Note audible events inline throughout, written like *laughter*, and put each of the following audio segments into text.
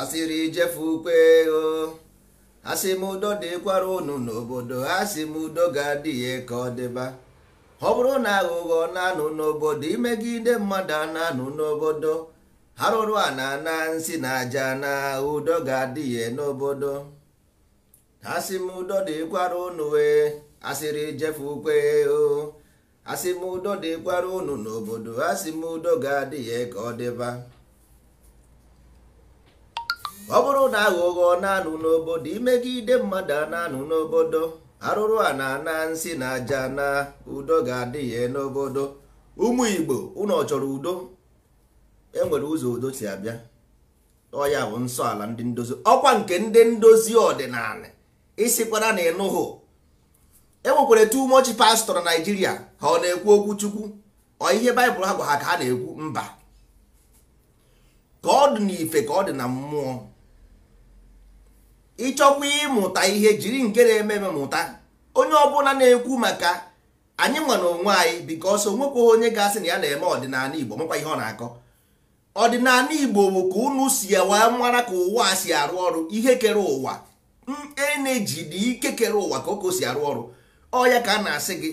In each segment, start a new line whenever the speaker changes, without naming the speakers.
asịrị ijefe ukwe o asị m udo dịkwara unu n'obodo asị m udo ga-adị ya ka ọ dịba ọ bụrụ na aghụghọ na-anụ n'obodo imegide mmadụ na-anụ n'obodo arụrụ a na ana nsị na aja na udo ga-adị ya n'obodo asị m udo dịkwara unu wee asịrị ijefe ukwe o asị m udo dịkwara unu n'obodo asị m udo ga-adị ya ka ọ dịba ọ bụrụ na aghụghọ na-anụ n'obodo imegide mmadụ a na-anụ n'obodo arụrụ a na-ana nsị na aja na udo ga-adị ya n'obodo ụmụ Igbo ụnọ chọrọ udo enwere ụzọ udo si abịa ọya bụ nsọ ala ndị ndozi ọkwa nke ndị ndozi ọdịnala isikwara na ịnụhụ enwekwara too much pastọ na Naịjirịa ha ọ na-ekwu okwu Chukwu ọ ihe Baịbụl ha gwa ha ka ha na-ekwu mba ka ọ dị n'ife ka ọ dị na mmụọ ịchọkwa ịmụta ihe jiri nke na-eme eme mụta onye ọbụla na-ekwu maka anyị nwere na onwe anyị bikos onwekwa onye ga-asị na ya na-eme ọdịnala Igbo makwa ihe ọ na-akọ ọdịnala Igbo bụ ka unu si wee mara ka ụwa si arụ ọrụ ihe kere ụwa mm, eneji dị ike kere ụwa ka oko si arụ ọrụ ọ ya ka a na-asị gị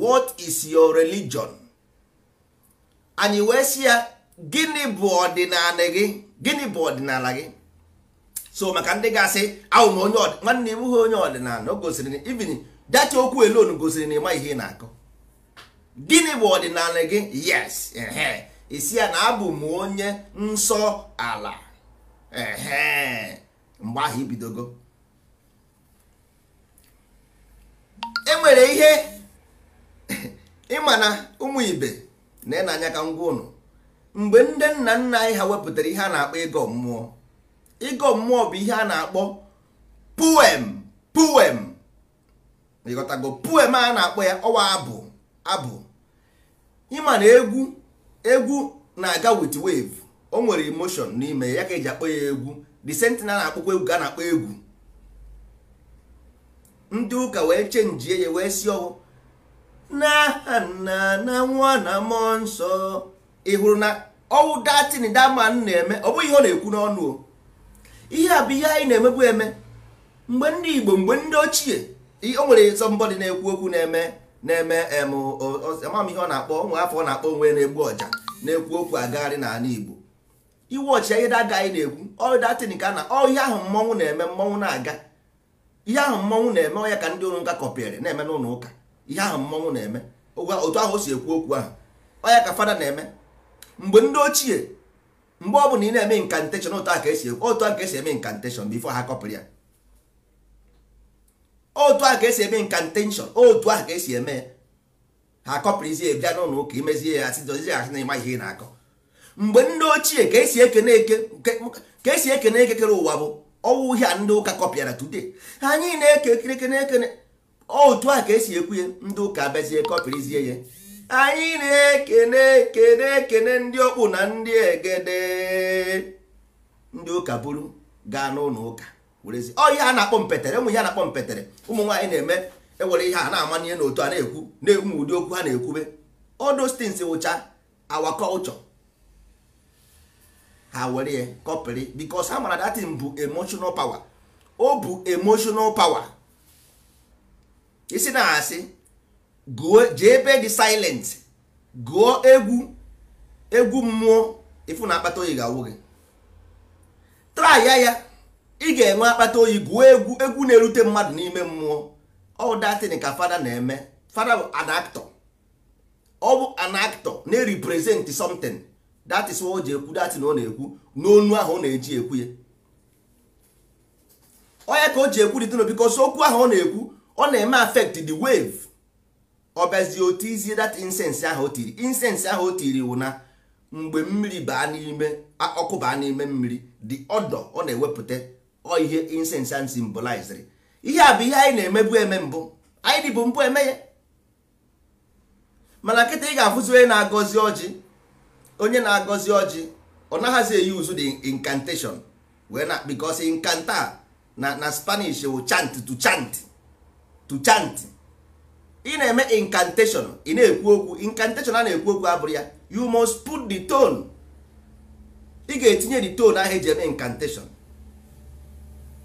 what is your religion anyị wee sị ya gịnị bụ ọdịnala gị gịnị bụ ọdịnala gị so maka ndị ga-asị awụ m nwanne m bụghị onye ọdịnala o gosiri ibin dacha okwu elon gosiri na ịma ihe ị na akụ gịnị bụ ọdịnala gị yes isi ya na abụ m onye nsọ ala mgbe ahụ ibidogo enwere ihe *laughs* ịma na ụmụ ibe na ịnanya ka ngwa ụnụ mgbe ndị nna nna anyị ha wepụtara ihe a na-akpọ ego mmụọ ịgọ mmụọ bụ ihe a na-akpọ puem puem ịghọtago puem a na-akpọ ya ọwa abụ abụ ịma na egwu egwu na-aga wit wave o nwere emotion n'ime ya ka eji akpọ ya egwu the sentin na-akpọkwa egwu ga na-akpọ egwu ndị ụka wee chenji ya wee si ọwụ na nna na nwa na nsọ ị hụrụ na ọwụ datin daman na-eme ọ bụghị ihe ọ na-ekwu n'ọnụ o ihe a bụ ihe anyị na-emebu eme mgbe ndị Igbo mgbe ndị ochie o nwere sọmbọdị na-ekwu okwu na-eme na-eme amam ihe ọ na-akpọ nwa afọ ọ na-akpọ onwe na-egbu ọja na-ekwu okwu agagharị n'ala Igbo iwe ọchịa ihe daga anyị na-ekwu ọdatin ka na ọ ihe ahụ mmọnwụ na-eme mmọnwụ na-aga ihe ahụ mmọnwụ na-eme ọ ya ka ndị ụlọ ụka kọpịrị na-eme n'ụlọ ụka ihe ahụ mmọnwụ na-eme otu ahụ o si ekwu okwu ahụ ọ ya ka fada na-eme mgbe ndị ochie mgbe ọ bụ na ị na-eme incantation otu a ka esi otu a ka esi eme incantation bifo ha kọpụrụ ya otu a ka esi eme incantation otu a ka esi eme ha kọpụrụzie bịa n'ụlọ ụka imezie ya asị dozie asị na ịma ihe ị na-akọ mgbe ndị ochie ka esi ekene eke ka esi ekene ekekere ụwa bụ ọwụ uhie a ndị ụka kọpịara today anyị na-eke ekene ekene otu a ka esi ekwu ya ndị ụka abịazie kọpịrịzie ya anyị na-ekene ekene ekene ndị okpu na ndị egede ndị ụka buru gaa n'ụlọ ụka werezi ọ ihe a na-akpọ mpetere ụmụ ihe a na-akpọ mpetere ụmụ nwaanyị na-eme ewere ihe a na-amanye n'otu a na-ekwu na-ekwu ụdị okwu ha na-ekwube all those wụcha awa culture ha were ya kọpịrị because ha mara datin bụ emotional power o bụ emotional power isi na-asị gụọ jee ebe dị silent gụọ egwu egwu mmụọ ịfụ na akpata oyi ga-awụ gị traya ya ị ga-enwe akpata oyi gụọ egwu egwu na-erute mmadụ n'ime mmụọ ọ datin ka fada na-eme fada bụ an ọbụ ọ bụ an na-represent something that is o ji ekwu datin ọ na-ekwu n'onu ahụ ọ na-eji ekwu ya onye ka o ji ekwu dị tino because okwu ahụ ọ na-ekwu ọ na-eme affect the wave ọ otu izi dat insensi ahụ o tiri insensi ahụ o tiri wụ na mgbe mmiri baa n'ime ọkụ baa n'ime mmiri dị ọdọ ọ na-ewepụta ọ ihe insensi a simboliziri ihe a bụ ihe anyị na-emebu eme mbụ anyị dịbụ mbụ eme ya mana nkịta ị ga-afụzi onye na-agọzi ọjị onye na-agọzi ọjị ọ naghịzi eyi uzu dị incantation wee na because incanta na na spanish wụ chant to chant chant ị na-eme incantation ị na-ekwu okwu incantation a na-ekwu okwu abụrụ ya you must put the tone ị ga-etinye the tone ahụ eji eme incantation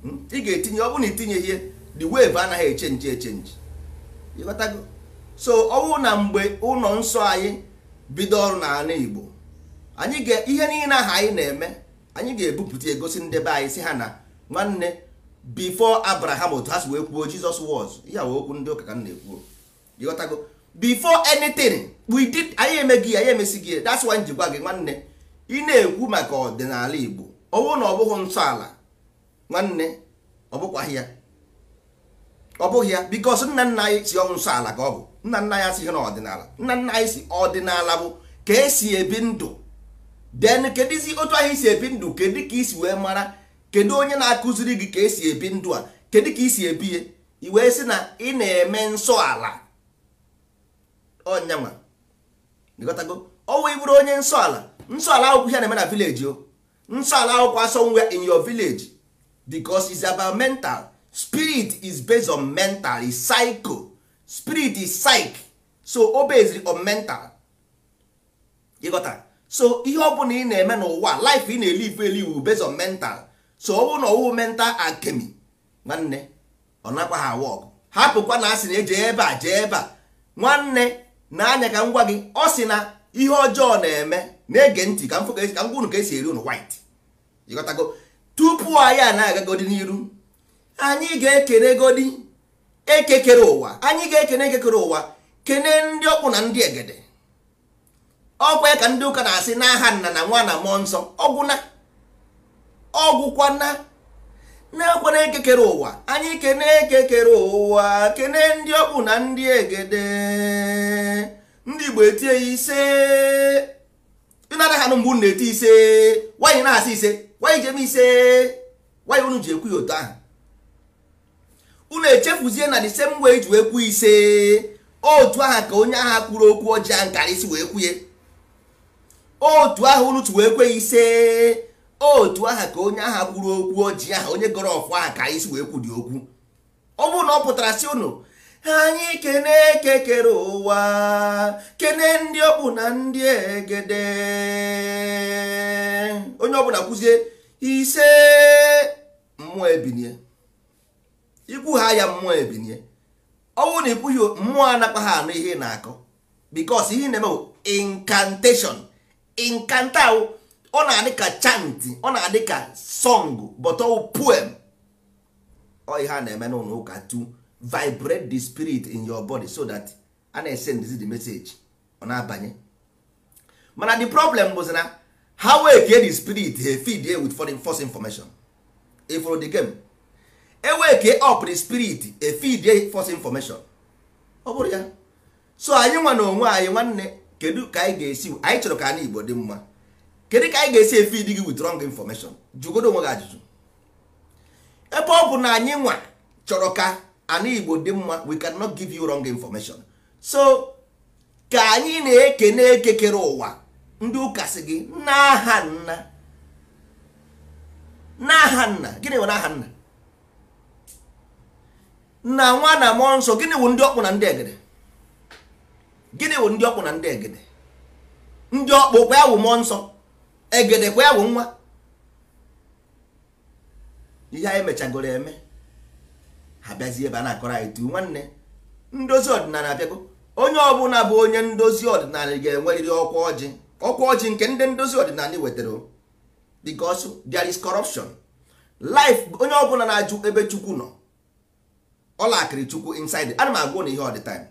hmm? ị ga-etinye ọ bụrụ na itinye ihe the wave anaghị echenji echenji so ọ na mgbe ụlọ nsọ anyị bido ọrụ n'ala Igbo anyị ga ihe niile aha anyị na-eme anyị ga-ebupụta egosi ndebe anyị si ha na nwanne before Abraham otu ha si wee kwuo Jizọs was ya wee okwu ndị ụka ka m na-ekwuo ịghọtago before anything we did anyị emeghị anyị emesi gị that's why njikwa gị nwanne ị na-ekwu maka ọdịnala Igbo ọnwụ na ọ bụghị nsọ ala nwanne ọ ya ọ bụghị ya because nna nna anyị si ọnwụ nsọ ala ka ọ bụ nna nna anyị si na ọdịnala nna nna anyị si ọdịnala bụ ka esi ebi ndụ then kedizi otu anyị si ebi ndụ kedu ka isi wee mara kedu onye na-akụziri gị ka esi ebi ndụ a kedu ka isi ebi ya i wee sị na ị na-eme nsọ ala ọnyanwa ịghọtago ọwụ ịbụrụ onye nsọ ala nsọ ala akwụkwọ ihe na-eme na vileji o nsọ ala akwụkwọ asọnwe in your village because it's about mental spirit is based on mental is psycho spirit is psych so o based on mental ịghọta so ihe ọbụla bụla ị na-eme n'ụwa life ị na-elive elive based on mental so ọ na ọwụ mental nwanne ọ nakwa ha wọk hapụkwa na asị na eje ebe a jee ebe a nwanne n'anya ka m gwa gị ọ sị na ihe ọjọọ na-eme na-ege ntị ka m ka ngwa unu ka esi eri unu white ịghọtago tupu anyị a na-agagodi n'iru anyị ga-ekene godi ekekere ụwa anyị ga-ekene ekekere ụwa kene ndị ọkpụ na ndị egede ọkwa ka ndị ụka na-asị na aha nna na nwa na mmụọ nsọ ọgwụna ọgwụkwana na-ekwe na ekekere ụwa anyị kene ekekere ụwa kene ndị ọkpụ na ndị egede igbo etie ya ise ịnada ha nụ mgbe unu na-eti ise nwaanyị na-asị ise nwaanyị jem ise nwaanyị unu ji ekwu ya otu ahụ unu echefuzie na disemba same way ji ekwu ise otu aha ka onye agha kwuru okwu ọjọọ nkara isi wee kwuye otu aha unu ji wee kwe ise otu aha ka onye agha kwuru okwu ọjị aha onye gọrọ ọfụ aha ka isi si wee kwụ dị okwu ọ bụrụ na ọ pụtara si unu anyị kene eke ụwa kene ndị ọkpụ na ndị egede onye ọbụla kwụzie ise mmụọ ebinie ikwu ha ya mmụọ ebinie ọnwụ na ikwughị mmụọ anakpa ha anụ ihe na-akọ bikos ihe na-eme bụ incantation inkanta ọ na-adị ka chant ọ na-adị ka song but puem poem ọ ihe a na-eme n'ụlọ ụka vibrate the spirit in your body so that a na-esend the message ọ na-abanye mana the problem bụzi na ha wee kee the spirit ha feed ya with foreign force information ifro e the game eweke up the spirit e feed ya force information ọ bụrụ ya so anyị nwa na onwe anyị nwanne kedu ka anyị ga-esi anyị chọrọ ka anyị igbo dị mma kedu ka anyị ga-esi feed gị with wrong information jugodo onwe gị ajụjụ ebe ọ bụ na anyị nwa chọrọ ka ana igbo dị mma we cannot give you wrong information so ka anyị na-ekene ekekere ụwa ndị ụka sị gị n'aha nna n'aha nna gịnị nwere n'aha nna na nwa na mmụọ nsọ gịnị wụ ndị ọkpụ na ndị egede gịnị wụ ndị ọkpụ na ndị egede ndị ọkpụ kwa ya wụ mmụọ nsọ egede kwa wụ nwa ihe anyị mechagoro eme ha ebe a na-akọrọ anyị tu nwanne ndozi ọdịnala abịago onye ọbụla bụ onye ndozi ọdịnala ga-enwerịrị ọkwa ọjị ọkwa ọjị nke ndị ndozi ọdịnala wetara because there is corruption life onye ọbụla na-ajụ ebe chukwu nọ ọla chukwu inside ana m agwụ na ihe all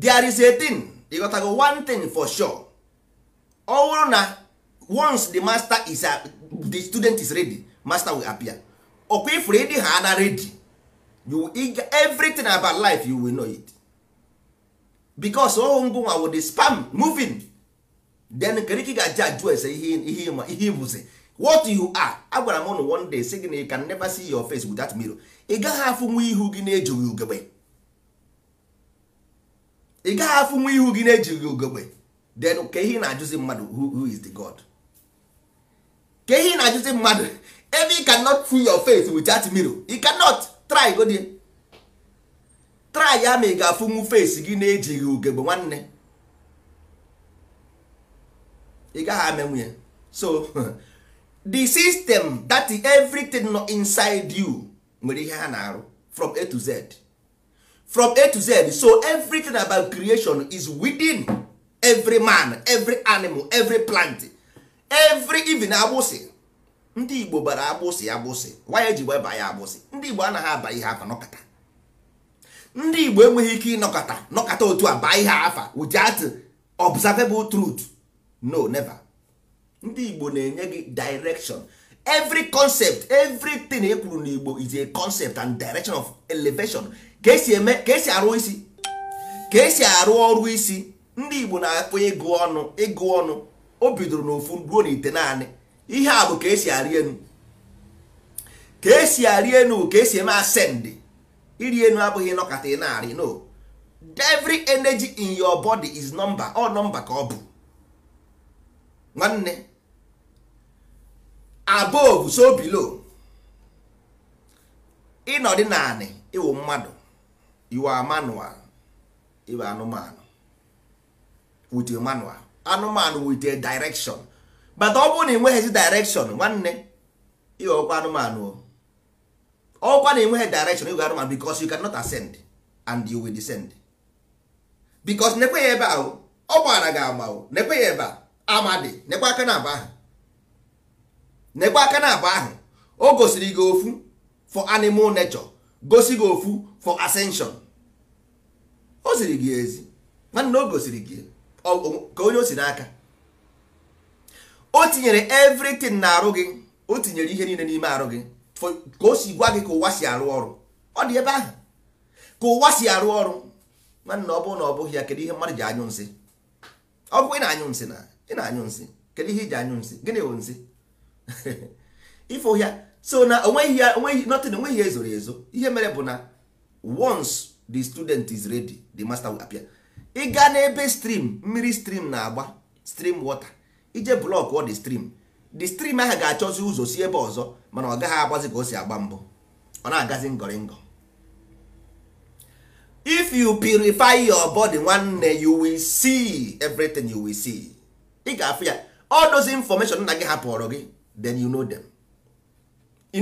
there is a thing ịghọtago one thing for sure ọ bụrụ na once the master is the student is ready master will appear. ọkwa ifuru ịdị ha na redi you everything about life you will know it because ohu ngụnwa wo the spam moving then kedu ka ị ga ajụ ese ihe ịbụzi what you are agwara m ụnụ one day sị gị na you can never see your face without mirror ị gaghị afụnwu ihu gị na-ejighị ugegbe ị gaghị afụnwu ihu gị na-ejighị ugegbe then ka ihe na-ajụzi mmadụ who is the god ka ihe na-ajụzi mmadụ ebe ị cannot fill your face that mirror you cannot try go there try ya ma ị ga-afụnwu face gị na-ejighị ugegbe nwanne ị gaghị amenwu ya so *laughs* the system that everything nọ inside you nwere ihe ha na-arụ from a to z from a to z so everything about creation is within every man every animal every plant every even agbụsị ndị igbo bara agbụsị agbụsị nwa ji eji weba ya agbụsị ndị igbo anaghị aba ihe afa nọkata ndị igbo enweghị ike ịnọkọta nọkọta otu a baa ihe afa without observable truth no never ndị igbo na-enye gị direction every concept everything e kwuru n'igbo is a concept and direction of elevation ka esi eme ka esi arụ isi ka esi arụ ọrụ isi ndị igbo na-akpọ ịgụ ọnụ ịgụ ọnụ o bidoro n'ofu ruo n'ite naanị ihe a bụ ka esi arị enu ka esi arị enu ka esi eme ascend iri enu abụghị nọkata ị na-arị no every energy in your body is number ọ number ka ọ bụ nwanne above so below ịnọdị naanị ịwụ mmadụ iwu manual iwu anụmanụ with a manual anụmanụ with a direction bata ọ bụrụ na enweghịzi direction nwanne ihe ọkwa anụmanụ ọkwa na enweghị direction ịgụ anụmanụ because you cannot ascend and you will descend because nekwe ya ebe ahụ ọ gbara gị ama nekwe ya ebe amadị nekwe aka na aba ahụ nekwe aka na aba ahụ o gosiri gị ofu for animal nature gosi gị ofu for ascension o ziri gị ezi nwanne o gosiri gị ka onye o si n'aka o tinyere everything na arụ gị o tinyere ihe niile n'ime arụ gị ka o si gwa gị ka ụwa si arụ ọrụ ọ dị ebe ahụ ka ụwa si arụ ọrụ nwanne ọ bụrụ na ọ bụghị ya kedu ihe mmadụ ji anyụ nsị ọ bụ ị na-anyụ nsị na ị na-anyụ nsị kedu ihe iji anyụ nsị gịnị bụ nsị ifo *laughs* ya so na onweghị ya onweghị notin onweghị ezoro ezo ihe mere bụ na once the student is ready the master will appear ị gaa n'ebe stream mmiri stream na-agba stream water ije blọk ọ dị strim dị strim ahụ ga-achọzi ụzọ si ebe ọzọ mana ọ gaghị agbazi ka o si agba mbụ ọ na-agazi ngọrịngọ if you purify your body nwanne you will see everything you will see ị ga-afụ ya all those information nna gị hapụrụ gị then you know them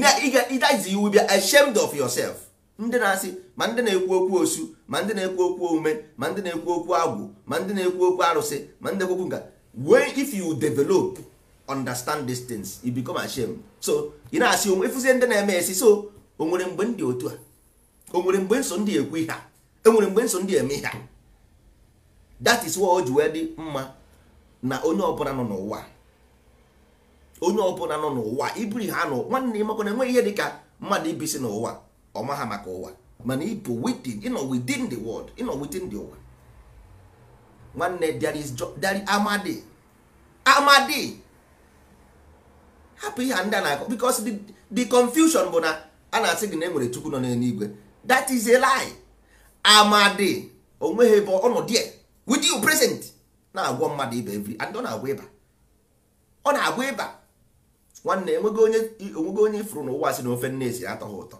that iwu will be ashamed of yourself ndị na-asị ma ndị na-ekwu okwu osu ma ndị na-ekwu okwu omume ma ndị na-ekwu okwu agwụ ma ndị na-ekwu okwu arụsị ma ndị na-ekwu okwu when if you develop understand these things you become ashamed so you know asị onwe ndị na-eme esi so o nwere mgbe ndị otu a o nwere mgbe nso ndị ekwu ihe a enwere mgbe nso ndị eme ihe a that is what o ji wee dị mma na onye ọbụla nọ n'ụwa onye ọbụla nọ n'ụwa ibiri ha nọ nwanne ịmakwana enweghị ihe dịka mmadụ ibisi n'ụwa ọma ha maka ụwa mana ịbụ within ịnọ within the world ịnọ within the ụwa nwanne there is there amadi amadi hapụ ihe ndị a na-akọ because the, confusion bụ na a na-asị gị na enwere chukwu nọ n'eluigwe that is a lie amadi onweghị ebe ọnọdụ ya with you present na-agwọ mmadụ ibe every and ọ na agwa ịba ọ na agwa ịba nwanne enweghị onye ifuru onye ifuru n'ụwa si na ofe nne si atọ ha ụtọ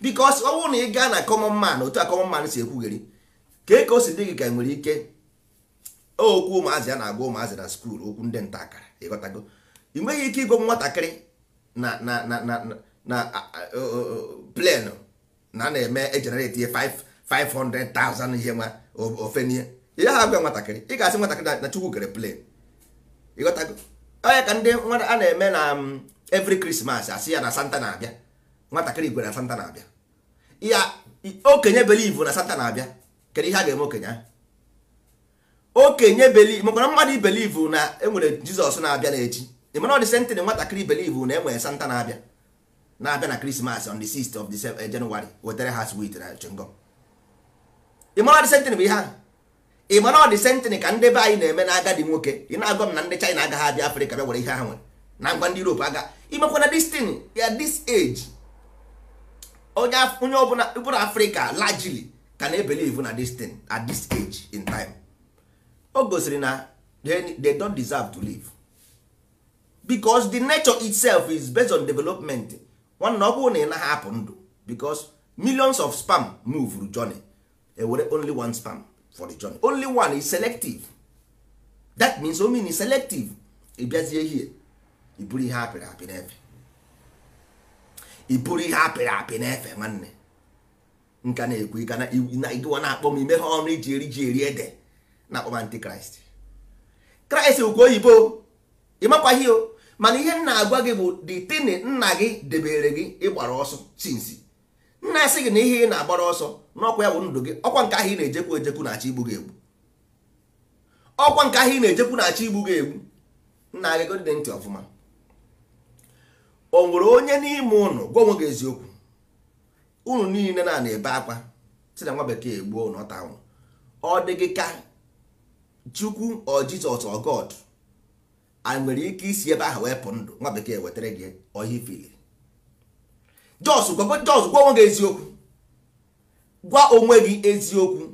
because ọ bụrụ na ị gaa na common man otu a common man si ekwugheri ka ka o si dị gị ka e nwere ike okwu ụmụazị ya na-agwa ụmụazị na skul okwu ndị nta akara ịghọtago ị nweghị ike ịgwa nwatakịrị na na na na na plenu na na-eme ejenereti 500,000 ihe nwa ofe n'ihe ihe ha gwa nwatakịrị ị ga-asị nwatakịrị na chukwu kere plen ịghọtago onye ka ndị nwata a na-eme na um, every krismas asị ya na santa na-abịa nwatakịrị igwe na santa na-abịa ya okenye believe na santa na-abịa kedu ihe a ga-eme okenye ahụ okenye believe makwara mmadụ ibelive na enwere jizọs na-abịa n'echi ịmana ọdị sentịn nwatakịrị belive na enwere santa na-abịa na-abịa na krismas on the 6th of the eh, January wetara ha sweet na chingom ịmana ọdị sentịn bụ ihe ahụ ịmana ọdị sentịn ka ndị be anyị na-eme na agadi nwoke ị na-agwa m na ndị china agaghị abịa afrịka bịa were ihe ha nwere na ngwa ndị europe aga imekwana destin ya this age onye ọbụla afrịka largely ka na-ebelive na destin at this age in time o gosiri na they don't deserve to live because the nature itself is based on development nwanna ọ bụrụ na ị naghị apụ ndụ because millions of spam move through journey ewere only one spam for the journey only one is selective that means mean is selective ịbịazie hie iburu ihe apịrị apị n'efe iburu ihe apịrị apị n'efe nwanne nka na-ekwu ịga na ịdịwa na-akpọ m ime ha ọrụ iji eri ji eri ede na-akpọba antikraịst kraịst ukwu oyibo ịmakwaghị o mana ihe na-agwa gị bụ ditini nna gị debere gị ịgbara ọsọ sinsi nna asị gị na ihe ị na-agbara ọsọ n'ọkwa ya bụ ndụ gị ọkwa nke ahụ ị na-ejekwu ejekwu na-achọ igbu gị egbu ọkwa nke ahụ ị na-ejekwu na-achọ igbu gị egbu nna gị dị ntị ọfụma o nwere onye n'ime ụnụ gwa onwe gị eziokwu unu niile na na-ebe akwa si na nwa bekee egbuo ụnụ ọ ta anwụ ọ dị gị ka chukwu or jizọs or god a nwere ike isi ebe ahụ wepụ ndụ nwa bekee wetara gị ọhịa ifili jos gwa onwe gị eziokwu gwa onwe gị eziokwu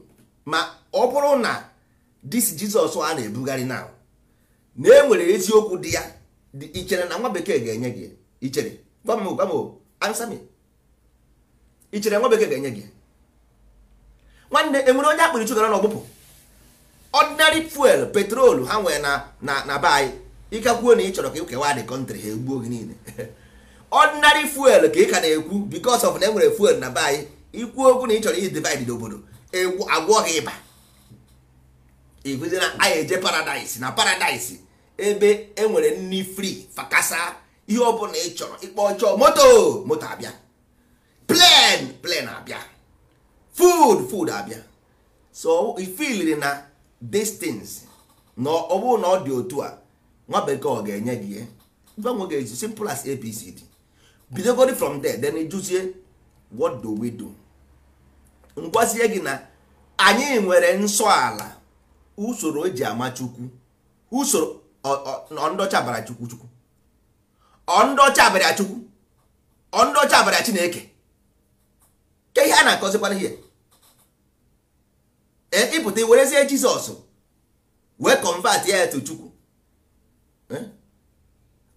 ma ọ bụrụ na dis jizọs a na-ebugharị na na e enwere eziokwu dị ya ichere na nwa bekee ga-enye gị ichere gwa m gwa m ansa ichere nwa bekee ga-enye gị nwanne enwere onye akpịrị chụgara na ọgbụpụ ordinary fuel petrol ha nwere na na na be anyị ịkakwuo na ị chọrọ ka ịkewa the country ha egbuo gị niile *laughs* ordinary fuel ka ị ka na-ekwu because ọf na e nwere fuel na be anyị ikwu okwu na ị chọrọ iji divide n'obodo e agwọ gị ịba ịgụzi anyị eje paradise na paradise ebe e nwere nri free fakasa ihe ọbụla ị chọrọ ịkpọ ọchọọ moto moto abịa plen plen abịa food food abịa so ifiliri na tins na ọ bụrụ na ọ dị otu a nwa bekee ọ ga-enye gị ihe mgbanwe ga-eji simple as apc dị bidogori from there then juzie what do we do ngwazie gị na anyị nwere nsọ ala usoro eji ama chukwu usoro ọndọcha bara chukwu chukwu ọndọcha bara chukwu ọndọcha bara chineke ke ihe a na-akọzikwana ihe Eh, ịpụta werezie jizọs wee kọnvat ya etu chukwu eh?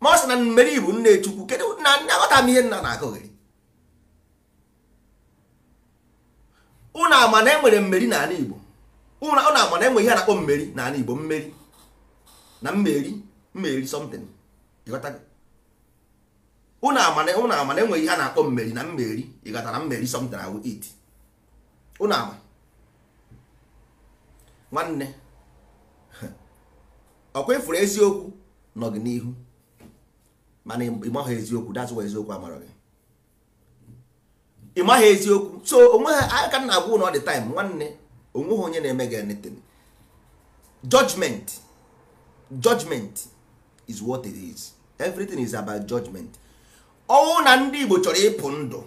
ma ọ sị na mmeri bụ nne chukwu kedu na nne aghọta m ihe nna na gị? ụnụ ama na enwere mmeri n'ala igbo ụnụ ama na enwe ihe a na-akpọ mmeri n'ala igbo mmeri na mmeri mmeri something ịghọtago ụnụ ama na enweghị ihe a na-akpọ mmeri na mmeri ịghọta na mmeri something awụ it ụnụ ama nwanne *laughs* ọkwa ifuru eziokwu nọ gị n'ihu mana ịmaghị eziokwu dazụwa eziokwu amara gị ịmaghị eziokwu so onwe ha aka na agwụ na ọ dị taịm nwanne onweghị onye na-eme gị anything judgment judgment is what it is everything is about judgment ọnwụ na ndị Igbo chọrọ ịpụ ndụ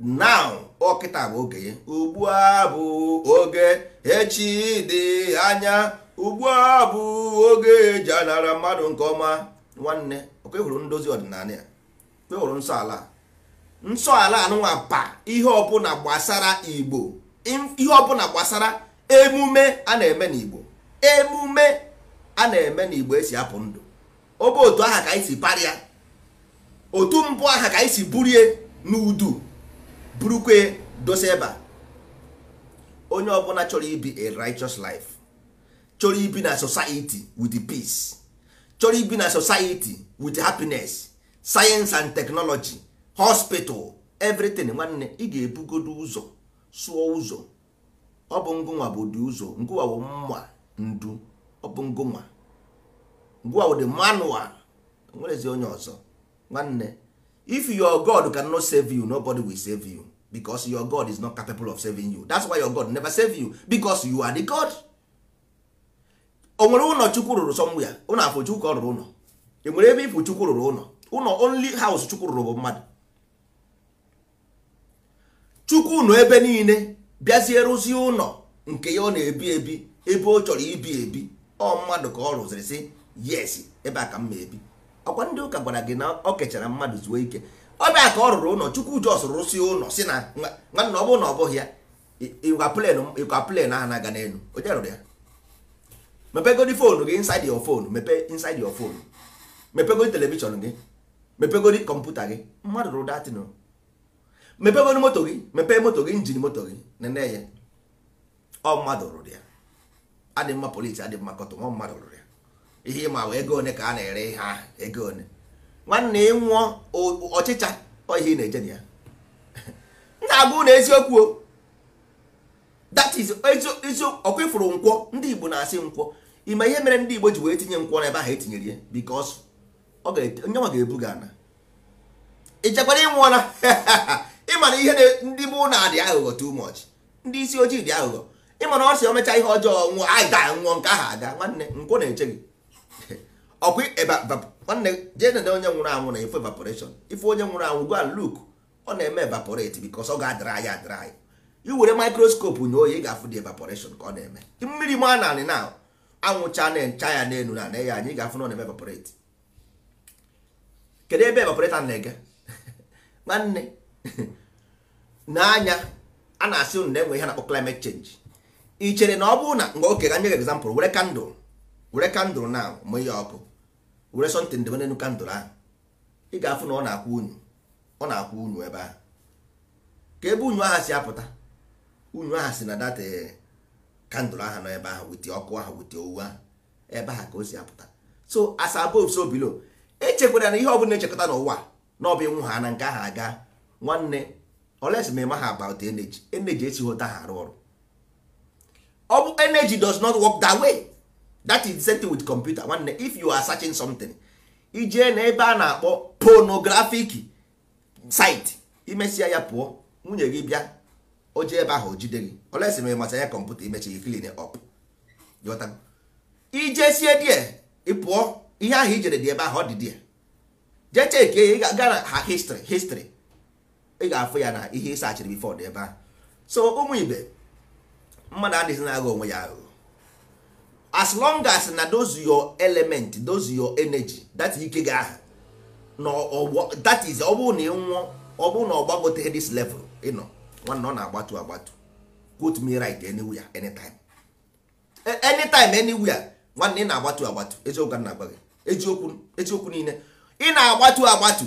now ọkịta bụ oge ugbu a bụ oge echi dị anya ugbu a bụ oge eji anara mmadụ nke ọma nwanne okwehụrụ ndozi ọdịnala ya kwehụrụ nsọ ala nsọ ala anụnwa pa ihe ọbụla gbasara igbo ihe ọbụla gbasara emume a na-eme n'igbo emume a na-eme n'igbo esi apụ ndụ ọ otu aha ka anyị si parịa otu mbụ aha ka anyị si burie n'udu burukwe dosa ebe a onye ọbụla chọrọ ibi a righteous life chọrọ ibi na society with peace chọrọ ibi na society with happiness science and technology hospital everything nwanne ị ga-ebugodo ụzọ sụọ ụzọ ọ bụ ngụnwa bụ ụdị ụzọ ngụwa bụ mma ndu ọ bụ ngụnwa ngụwa bụ dị manual nwerezi onye ọzọ nwanne if your god cannot save you nobody will save you because your god is not capable of saving you that's why your god never save you because you are the god o nwere ụlọ chukwu rụrụ somewhere ụlọ afọ chukwu ka ọ rụrụ ụlọ e nwere ebe ifụ chukwu rụrụ ụlọ ụlọ only house chukwu rụrụ bụ mmadụ chukwu nọ ebe niile bịazie rụzie ụlọ nke ya ọ na-ebi ebi ebe ọ chọrọ ibi ebi ọ mmadụ ka ọ rụziri sị yes ebe a ka m ma ebi ọkwa ndị ụka gwara gị na ọ kechara mmadụ zuo ike ọ bịa ka ọ rụrụ ụlọ chukwu jos rụsị ụlọ si na nwanna ọ bụrụ na ọ bụghị ya ịkwa plen ahụ na-aga n'elu onye rụrụ ya mepegodi fonu gị inside your phone mepe inside your phone mepegodi telivishọn gị mepegodi kọmputa gị mmadụ rụrụ datin mepegodi moto gị mepee moto gị njin moto gị nene ya ọ mmadụ rụrụ ya adị mma polisi adị mma kọtọ nwa mmadụ rụrụ ihe ịma wee ego one ka a na-ere ha ego one nwanne ịnwụọ ọchịcha ihe ị na-eje na ya *laughs* na-abụ na eziokwu that ịfụrụ nkwọ ndị Igbo na-asị nkwọ ime ihe mere ndị Igbo ji wee tinye nkwọ n'ebe ahụ etinyere ya because onye nwa ga ebu gị ana ichekwara ịnwụọla *laughs* ịma na ihe ndị mụ na adị aghụghọ too much ndị isi ojii dị aghụghọ ịma na ọ sị omecha ihe ọjọọ nwụọ anyị daa nwụọ nke ahụ aga nwanne nkwọ na-eche gị ọkwa nwanne jee nede onye nwụrụ anwụ na ife evaporation ife onye nwụrụ anwụ gwa luk ọ na-eme evaporate bikos ọ ga-adịrị ya adịrị anyị iwere mikroskopu na oyi ị ga-afụ dị evaporation ka ọ na-eme mmiri ma na anị na anwụcha na-encha ya n'elu na ya anyị ga-afụ na ọ na-eme evaporate kedu ebe evaporate na-ege *laughs* nwanne *laughs* n'anya a na-asị ụnụ na-enwe ihe na-akpọ climate change ị chere na ọ bụrụ na mgbe oke ga nye gị example were kandụl were kandụl na mụnye ọkụ were sọntịn ndebe n'elu kandụl ahụ ị ga-afụ na ọ na-akwụ unu ọ na-akwụ unu ebe eh, ahụ ka ebe unu aha si apụta unu aha si na data kandụl ahụ nọ ebe eh, ahụ wite ọkụ ahụ wite owu ahụ ebe eh, ahụ ka o si apụta so as above so below echekwara na ihe na echekọta n'ụwa na ọ bụ ịnwụ ha na nke ahụ aga nwanne oles ma ịma ha about energy energy esighị ha arụ ọrụ ọ bụ energy does not work that way. that is the same with computer nwanne if you are searching something ijee na ebe a na-akpọ pornographic site imesịa ya pụọ nwunye gị bịa o jee ebe ahụ jide gị olesi mere masa ya kọmputa imechi gị clean up sie die ịpụọ ihe ahụ ijere dị ebe ahụ ọ dị die jee cheke ya gaa na ha history history ị ga-afụ ya na ihe ịsachiri bifọ dị ebe ahụ so ụmụ ibe mmadụ adịghị na-agha onwe ya ahụ as long as na those your element those your energy that ike gị ahụ na that is ọ bụrụ na ị ọ bụrụ na ọ gbagote this level ịnọ nwanne ọ na-agbatu agbatu put me right anywhere anytime e, anytime anywhere nwanne ị na-agbatu agbatu eziokwu na agba gị eziokwu eziokwu niile ị na-agbatu agbatu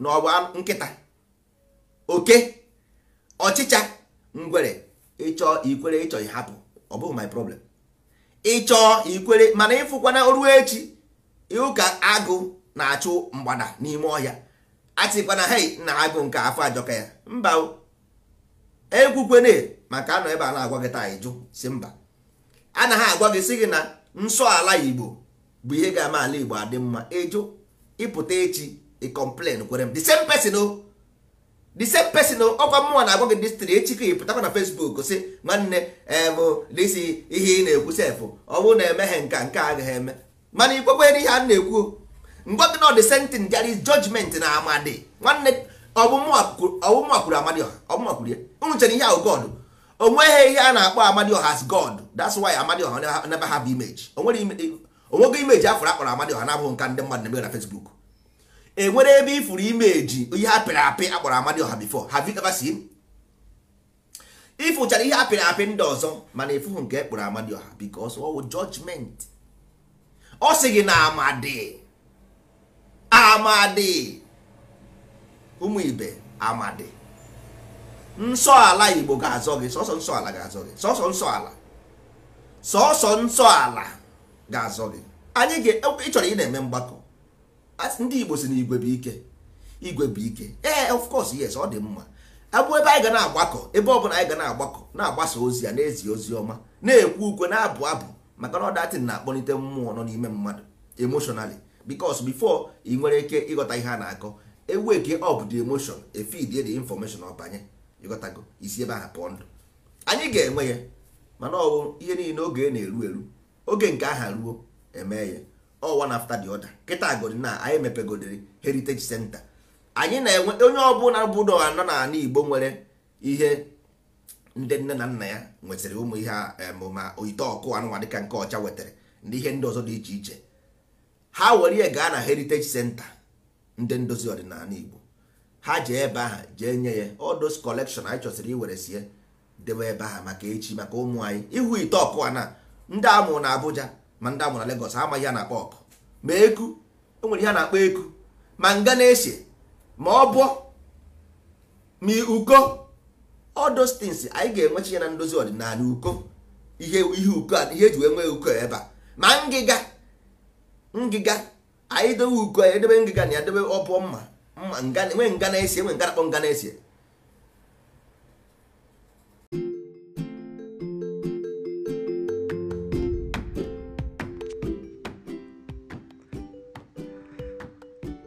na ọ bụ nkịta oke ọchịcha ngwere ịchọ ikwere ịchọ ịhapụ ọ bụghị my problem ịchọọ ikwere mana ịfụkwana ruo echi ịhụ ka agụ na-achụ mgbada n'ime ọhịa atịkwana hei na agụ nke afọ ajọka ya mba ekwukwene maka anọ ebe a na-agwa gị taa ịjụ si mba anaghị agwa gị si gị na nsọ ala igbo bụ ihe ga-ama ala igbo adị mma ịjụ ịpụta echi ịkọmplen kwere m the same person o the same person ọkwa mmụọ na-agwa gị dịstri echi ka ị pụtakwa na Facebook si nwanne ebụ eh, dịsi ihe ị na-ekwu sefụ ọ na emeghe nka nke agaghị eme mana ikwekwe ihe a na-ekwu mgbe gị na the same thing na amadi nwanne amadi ọha ihe ahụ God ihe a na-akpọ amadi God that's why amadi ọha imeji afọrọ akpọrọ amadi ọha na mmadụ na enwere ebe ifuru ime eji ihe apịrị apị akpọrọ amadi ọha bifo have you ever seen ịfụchara ihe apịrị apị ndị ọzọ mana ịfụhụ nke ekpọrọ amadi ọha because ọwụ judgment ọ sị gị na amadi amadi ụmụ ibe amadi nsọ ala igbo ga-azọ gị sọsọ nsọ ala ga-azọ gị sọsọ nsọ ala sọsọ nsọ ala ga-azọ gị anyị ga ịchọrọ ị na-eme mgbakọ ndị igbo si na igwe bụ ike igwe bụ ike ee eh, of course yes ọ dị mma abụ ebe anyị ga na-agbakọ ebe ọ bụla anyị ga na-agbakọ na-agbasa ozi ya na-ezi ozi ọma na-ekwu ukwe na-abụ abụ maka na ọdatin na-akpọlite mmụọ nọ n'ime mmadụ emotionally because before ị nwere ike ịghọta ihe a na-akọ eweke up the emotion efidie the information ọ banye ịghọtago isi ebe aha pụọ ndụ anyị ga-enwe ya mana ọ bụ ihe niile oge na-eru eru oge nke aha ruo emee ya all one after the other kịta godi na anyị mepegodiri heritage center anyị na-enwe onye ọbụla bụ na anọ na ala igbo nwere ihe ndị nne na nna ya nwetara ụmụ ihe ma oyite ọkụ anụnwa dịka nke ọcha wetara ndị ihe ndị ọzọ dị iche iche ha were ya gaa na heritage center ndị ndozi ọdịnala igbo ha jee ebe ahụ jee nye ya odos collection anyị chọsịrị iwere sie debe ebe ahụ maka echi maka ụmụ anyị ịhụ ite ọkụ a na ndị amụrụ na Abuja ma ndị amụrụ na Lagos amaghị ya na-akpọ ọkụ ma eku enwere ihe a na-akpọ eku ma nga na-ese ma ọ bụ ma uko all anyị ga-enwechi ya na ndozi ọdịnala uko ihe ihe uko ihe eji wee nwee uko ebe a ma ngịga ngịga anyị dowe uko anyị edebe ngịga na ya debe ọ mma mma nwee nga na-ese enwe nga na-akpọ nga na-ese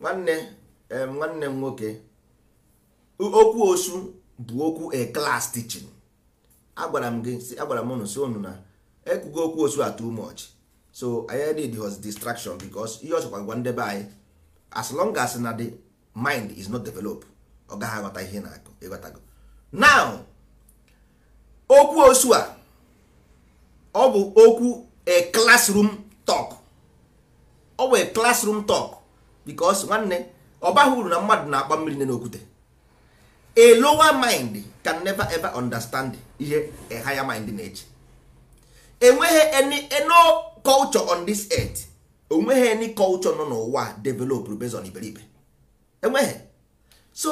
nwanne nwanne m nwoke okwu osu bụ okwu a class teaching agwara m gị agwara m ụnụ si ụnụ na ekwugo okwu osu a too much so anyị need was distraction because ihe ọchọkwa gwa ndebe anyị as long as na the mind is not develop ọ gaghị aghọta ihe na-akụ ịghọtago now okwu osu a ọ bụ okwu a classroom talk ọ bụ a classroom talk because nwanne ọ baghị uru na mmadụ na-akpa mmiri nne n'okwute a lower mind can never ever understand ihe a higher mind na-eche enweghị any no culture on this earth onweghị any culture nọ n'ụwa develop based on iberibe enweghị so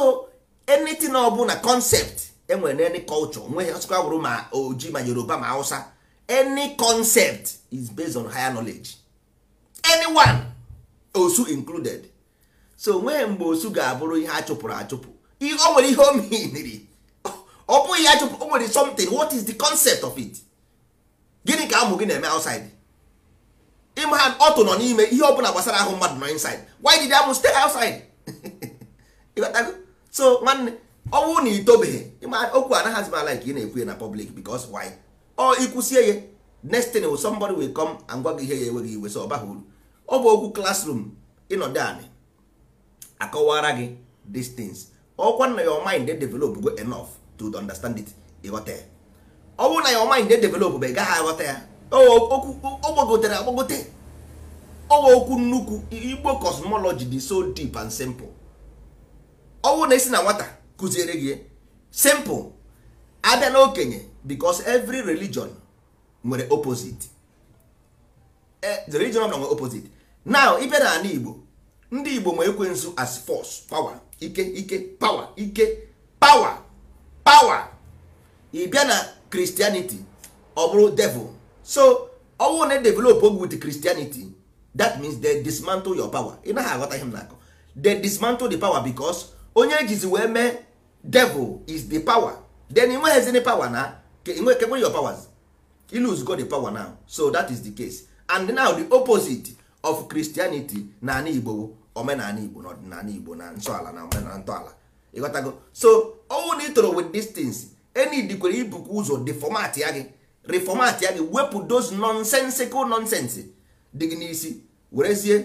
anything ọ na concept enwere na any culture nweghị ọsịkwa bụrụ ma oji ma yoruba ma hausa any concept is based on higher knowledge anyone osu included so nwee mgbe osu ga-abụrụ ihe a chụpụrụ achụpụ ihe o nwere ihe omei niri ọ bụghị ya chụpụ o nwere something what is the concept of it gịnị ka ụmụ gị na-eme outside ịma ha ọtụ nọ n'ime ihe ọbụla gbasara ahụ mmadụ nọ inside why did amụ stay outside *laughs* so nwanne ọ bụrụ na itobeghị okwu anaghị azimala nke ị na-ekwu ya na public because why ọ ikwusie ya next thing somebody will come and gwa gị ihe ya enweghị iwe so ọ baghị uru ọ bụ okwu classroom ịnọdụ anị akọwara gị these things ọkwa na your mind dey develop go enough to understand it ịghọta ya ọ na your mind dey develop ba ị gaghị aghọta ya ọ gbagotere agbagote ọwa okwu nnukwu igbo cosmology dị so deep and simple ọ na esi na nwata kụziere gị simple abịa n'okenye because every religion nwere opposite e, the religion nwere opposite now ibe na ala igbo ndị igbo ma ekwensu as fos power ike ike power ike power power ị na christianity ọ bụrụ devil so ọ bụrụ na e develop oge with christianity that means they dismantle your power ị naghị aghọta ihe m na-akọ they dismantle the power because onye ejizi wee mee devil is the power then ị nweghịzini power na kegbe your powers you lose God the power now so that is the case and now the opposite of Christianity na ana Igbo omenala Igbo na ọdịnala Igbo na nsọala na omenala ntọala ịghọtago so all na ịtụrụ with these things enidikwere ibukwa ụzọ deformat ya gị reformat ya gị wepụ those nonsensical nonsense dị gị n'isi werezie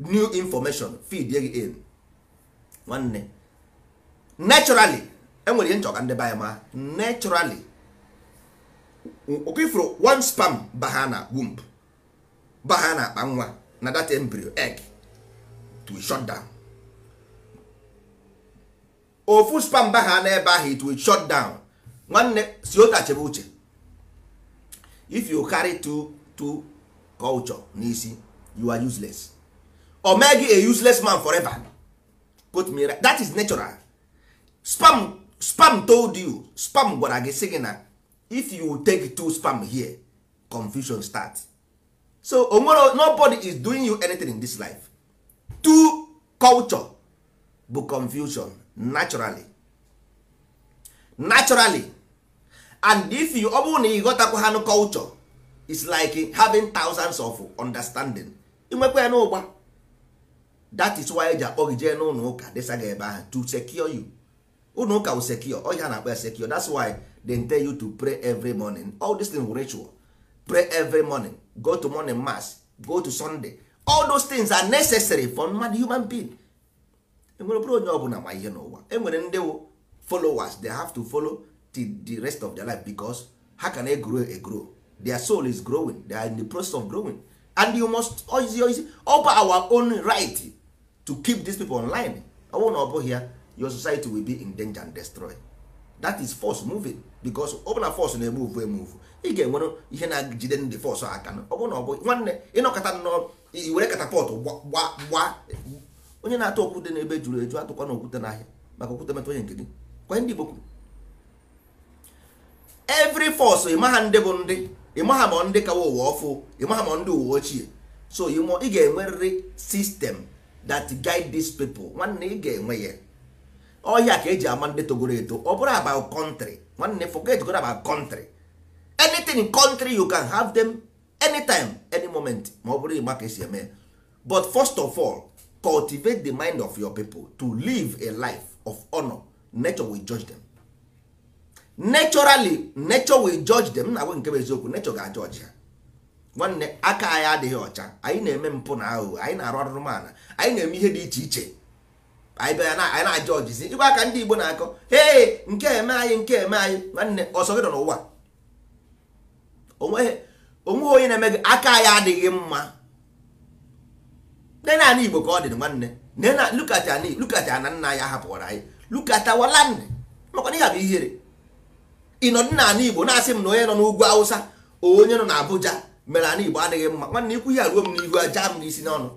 new information feed gị in nwanne naturally enwere ihe nchọga ndị baya ma naturally okifuru one spam baha na womb baha na akpa nwa na that embryo egg to shut down ofu spam baha n'ebe ahụ it will shut down nwanne si ota chebe uche if you carry two two culture n'isi you are useless o mee a useless man forever put me right. that is natural spam spam told you spam gwara gị sị gị na if you take two spam here confusion start so onwere nobody is doing you anything in this life two culture bụ confusion naturally naturally and if you ọ bụrụ na ị ha culture is like having thousands of understanding inwekwa ya n'ụgba that is why eji akpọ gị jee n'ụlọ ụka desa ga ebe ahụ to secure you ụnụ ụka usekio ọ ihe a na-akpọ sekio that's why they tell you to pray every morning all these things ritual pray every morning go to morning mass go to sunday all those things are necessary for mmadụ human being enwere bụrụ onye ọbụla ma ihe n'ụwa enwere ndị followers they have to follow till the rest of their life because how can they grow a grow their soul is growing they are in the process of growing and you must ozi ozi over our own right to keep these people online ọ bụrụ na ọ bụghị ya your society will be in danger and destroyed. that is force moving because ọ force na force na-emuvu emuvu ị ga-enwere ihe na-ejide ndị force aka ọ bụ na ọ bụ nwanne ịnọkọta nnọọ iwere katapọtụ gba onye na-atụ okwute n'ebe juru eju atụkwa na okwute n'ahịa maka okwute metụ onye nke gị kwa ndị Igbo kwuru every force ịmaha ndị bụ ndị ịmaha ma ndị kawa ụwa ọfụ ịmaha ma ndị ụwa ochie so ị ga-enwerịrị system that guide these people nwanne ị ga-enwe ya ọhịa ka eji ama ndị togoro eto ọ bụrụ about country nwanne forget go about country anything in country you can have them anytime any moment ma ọ bụrụ ịgba ka esi eme but first of all cultivate the mind of your people to live a life of honor nature will judge them naturally nature will judge them na nke bụ eziokwu nature ga judge ya. nwanne aka anyị adịghị ọcha anyị na-eme mpụ na aghụghọ anyị na-arụ arụrụmala anyị na-eme ihe dị iche iche anyị bịa anyị na-ajụ ọjịzi ịkwa aka ndị Igbo na-akọ ee nke eme anyị nke eme anyị nwanne ọsọ gị nọ n'ụwa onwe onye na-eme gị aka anyị adịghị mma nne naanị Igbo ka ọ dị nwanne nne na lukata lukata na nna ya hapụwara anyị lukata wala nne maka na ya bụ ihere ịnọdụ na ala Igbo na-asị m na onye nọ n'ugwu Awụsa onye nọ n'Abuja mere ala Igbo adịghị mma nwanne ikwu ya ruo m n'ihu aja m n'isi n'ọnụ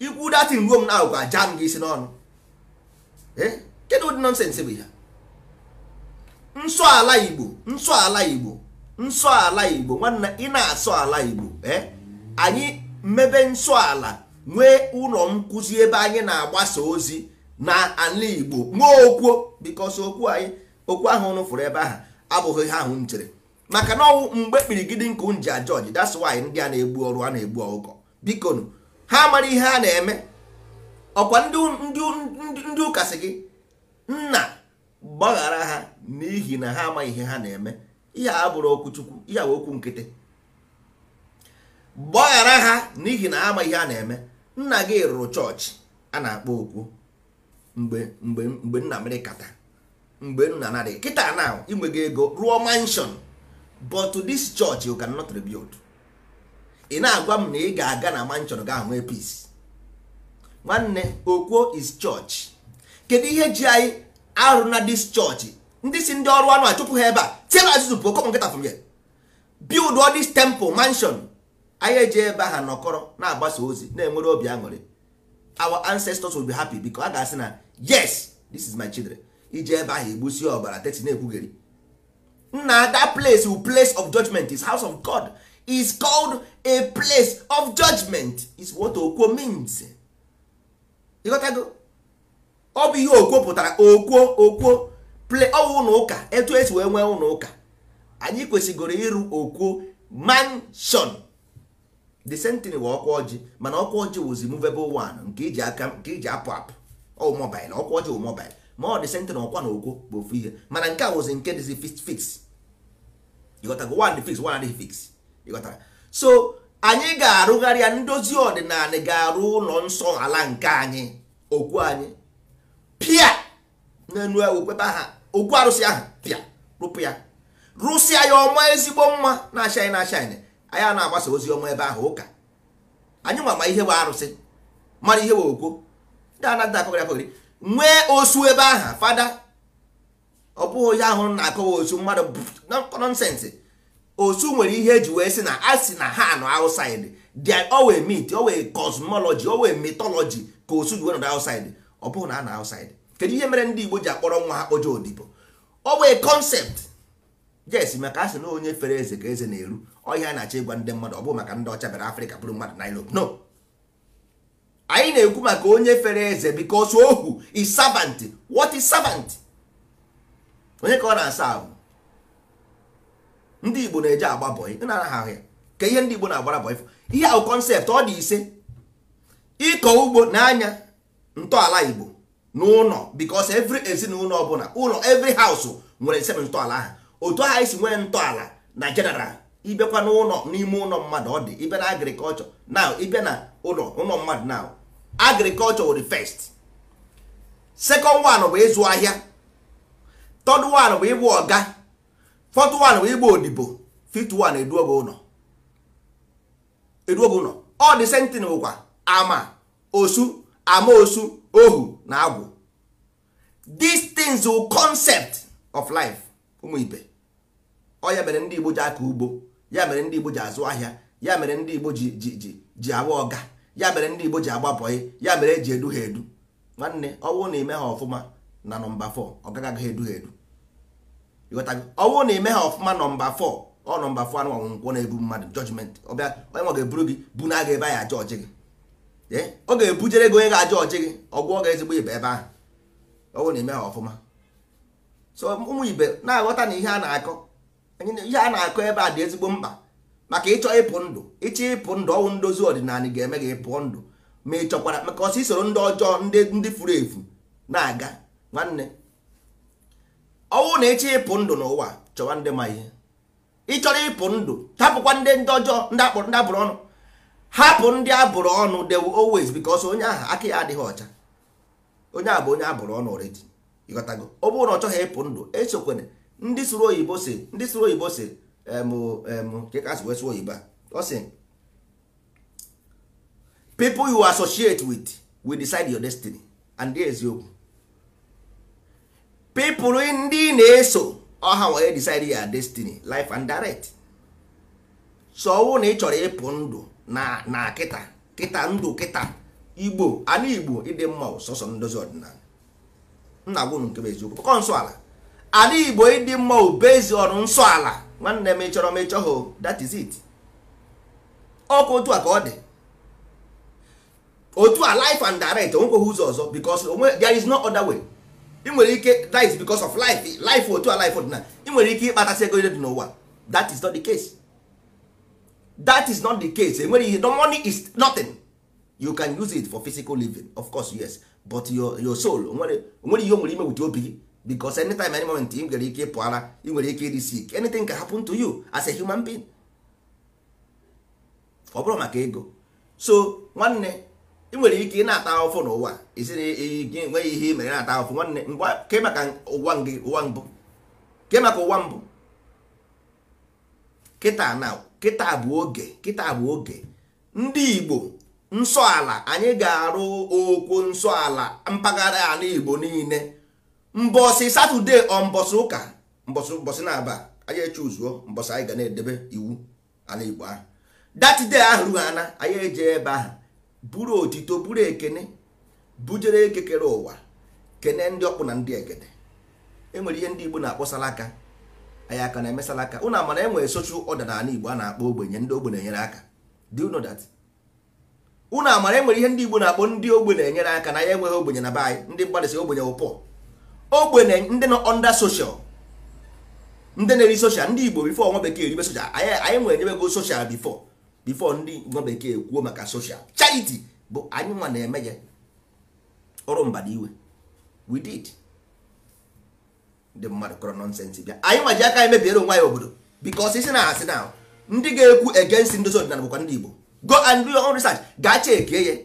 ikwu datin ruo m na agwụgwa m gị si n'ọnụ kedụ ụdị nọnsensị bụ ya nsọ ala igbo nsọ ala igbo nsọ ala igbo nwanna ị na-asọ ala igbo anyị mmebe nsọ ala nwee ụlọ nkụzi ebe anyị na-agbasa ozi na ala igbo nwee okwuo bikọs okwu anyị okwu ahụ nụfụrụ ebe ahụ abụghị ha ahụ maka na ọnwụ mgbe kpirigide nkụ m ji ajọji that's why ndị a na-egbu ọrụ a na-egbu ọgụkọ biko ha amara ihe a na-eme ọkwa ndị ụka gị nna gbaghara ha n'ihi na ha amaghị ihe ha na-eme ihe a bụrụ okwuchukwu ihe bụ okwu nkịtị gbaghara ha n'ihi na ha amaghị ihe ha na-eme nna gị rụrụ chọọchị a na-akpọ okwu mgbe mgbe mgbe nna mere kata mgbe nna narị kịta na inwe gị ego rụọ mansion but this church you cannot rebuild ị na-agwa m na ị ga-aga na ma nchọrọ gị ahụ nwee peace nwanne okwuo is church kedu ihe ji anyị arụ na dis chọọchị ndị si ndị ọrụ anụ achụpụ ha ebe a tiere azụzụ pụọ kọpụ nkịta from here build all temple mansion anyị eji ebe ha nọkọrọ na-agbasa ozi na-enwere obi aṅụrị our ancestors will be happy biko a ga-asị na yes this is my children ji ebe ahụ egbusi ọbara teti na-ekwugheri nna that place will place of judgment is house of God is called a place of judgment is what okwo means ịghọtago ọ bụ ihe okwo pụtara okwo okwo ple ọwụ ụlọ ụka etu esi wee nwee ụlọ ụka anyị kwesịgoro ịrụ okwo mansion the same thing wụ ọkwa ọjị mana ọkwa ọjị wụzi movable one nke iji e aka nke iji e apụ apụ ọ mobile ọkwa ọjị wụ mobile ma ọ dị sentin ọkwa na okwo bụ ofu ihe mana nke a wụzi nke dịzi fix fix. ịghọtago one fix one adịghị fix ịghọtara so anyị ga-arụgharị ya ndozi ọdịnala ga-arụ ụlọ nsọ ala nke anyị okwu anyị pịa n'elu okwebe aha okwu arụsị ahụ pịa rụpụ ya rụsịa ya ọma ezigbo mma na-achaị na-achaị anyị na-agbasa ozi ọma ebe ahụ ụka anyị nwa ma ihe bụ arụsị mara ihe bụ okwu akọgharị nwee osu ebe aha fada ọ bụghị onye ahụ na-akọwa osu mmadụ nọnsensị osu nwere ihe eji wee sị na a sị na ha nọ outside they always meet always cosmology wee mythology ka osu ji wee nọrọ ọ bụghị na a na outside kedu ihe mere ndị Igbo ji akpọrọ nwa ha kpoje odibo always concept yes maka a sị na onye fere eze ka eze na-eru ọhịa na-achọ ịgwa ndị mmadụ ọ bụghị maka ndị ọcha bịara Afrịka bụrụ mmadụ na Europe no anyị na-ekwu maka onye fere eze because ohu is servant what is servant onye ka ọ na-asa ahụ ndị igbo na-eje agba bọị na ahụ ya ka ihe ndị igbo na-agbara bọị ihe ahụ kọnsept ọ dị ise ịkọ ugbo n'anya ntọala igbo n'ụlọ bikos every ezinụlọ ọbụla ụlọ every house nwere seven ntọala ha otu ahụ isi nwee ntọala na general ịbịakwa n'ụlọ n'ime ụlọ mmadụ ọ dị ịbịa na agrikọlchọ na ịbịa na ụlọ ụlọ mmadụ now agrikọlchọ were first second one bụ ịzụ ahịa third one bụ ịbụ ọga 41 bụ igbo odibo 51 eduobe ụlọ ụlọ ọ dị sentin bụkwa ama osu ama osu ohu na agwụ these konsept concept of life ụmụ ibe ọ ya mere ndị igbo ji aka ugbo ya mere ndị igbo ji azụ ahịa ya mere ndị igbo ji ji ji ji agba ọga ya mere ndị igbo ji agba ya mere eji edu ha edu nwanne ọ bụrụ na ime ha ọfụma na nọmba 4 ọ gaghị edu ha edu ọ bụrụ na ime ha ọfụma nọmba fọ ọ nọmba fọ anụ ọnwụnkwọ na-ebu mmadụ jọjimenti ọbịa onye nwa ga-eburu gị bu na aga ebe ya aja ọchị gị ọ ga-ebujere gị onye ga-aja ọchị gị ọgwụ ọ ga-ezigbo ibe ebe ahụ ọ bụrụ na ime ha ọfụma so ụmụ ibe na-aghọta na ihe a na-akọ ihe a na-akọ ebe a dị ezigbo mkpa maka ịchọ ịpụ ndụ ịchọ ịpụ ndụ ọnwụ ndozi ọdịnala ga-eme gị ịpụọ ndụ ma ị chọkwara maka ọsọ isoro ndị ọjọọ ndị furu efu na-aga nwanne ọnwụ na echi ịpụ ndụ n'ụwa chọwa ndị ma ihe ị chọrọ ịpụ ndụ tapụkwa ndị ndị ọjọọ ndị abụrụ ọnụ hapụ ndị abụrụ ọnụ they always because onye aha aka ya adịghị ọcha onye a bụ onye abụrụ ọnụ already ọ bụrụ na ọ chọghị ịpụ ndụ esokwere ndị sụrụ oyibo si ndị sụrụ oyibo si oyibo a ọ sị people you associate with will decide your destiny and dị eziokwu pipụl ndị na-eso ọha wee decide ya destiny life and direct so ọwụ na ị chọrọ ịpụ ndụ na na kịta kịta ndụ kịta igbo ala igbo ịdị mma sọsọ ndozi ọdịnala nna gwụ nke bụ eziokwu kọ nsọ ala ala igbo ịdị mma ubezi ọrụ nsọ ala nwanne m ịchọrọ m ịchọghị oh, that is it ọkụ otu a ka ọ dị otu a life and direct onwekweghị ụzọ ọzọ because there is no other way. ị nwere ike that is because of life life otu a life ọdịna ị nwere ike ịkpatasị ego dị n'ụwa that is not the case that is not the case enwere ihe the money is nothing you can use it for physical living of course yes but your your soul nwere ihe o nwere ime wit obi gị any anytime any moment ị nwere ike ịpụ ara ị nwere ike ịdị sick anything can happen to you as a human being ọ bụrụ maka ego so nwanne ị nwere ike ị na-ata ahụfụ n'ụwa isi na nweghị ihe mere na-ata ahụfụ nwanne ke maka ụwa gị ụwa mbụ ke maka ụwa mbụ kịta na kịta bụ oge kịta bụ oge ndị Igbo nsọ ala anyị ga-arụ okwu nsọ ala mpaghara ala Igbo niile mbọsị satọde ọ mbọsị ụka mbọsị mbọsị na-aba anyị echuzuo mbọsị anyị ga na-edebe iwu ala Igbo ahụ datide ahụ rughana anyị eje ebe ahụ buru otito buru ekene bujere eke kere ụwa kene ndị ọkpụ na ndị egede enwere ihe ndị igbo na-akpọ salaka anyị aka na-eme salaka ụnụ amara enwere soshal ọda n'ala igbo a na-akpọ ogbenye ndị ogbenye enyere aka do you know ụnụ amara enwere ihe ndị igbo na-akpọ ndị ogbenye enyere aka na ya enweghị ogbenye na be anyị ndị mgbadịsị ogbenye ụpọ ogbenye ndị nọ ọnda soshal ndị na-eri soshal ndị igbo bifo nwa bekee eribe soshal anyị anyị nwere enyebego soshal bifo before ndị nwa bekee kwuo maka soshal charity bụ anyị nwa na-eme ya ọrụ mbada iwe we did ndị mmadụ kọrọ nọnsensị bịa anyị nwa ji aka anyị mebiere onwe anyị obodo because isi na asị na ndị ga-ekwu against ndozi ọdịnala bụkwa ndị Igbo go and do your own research gaa eke ya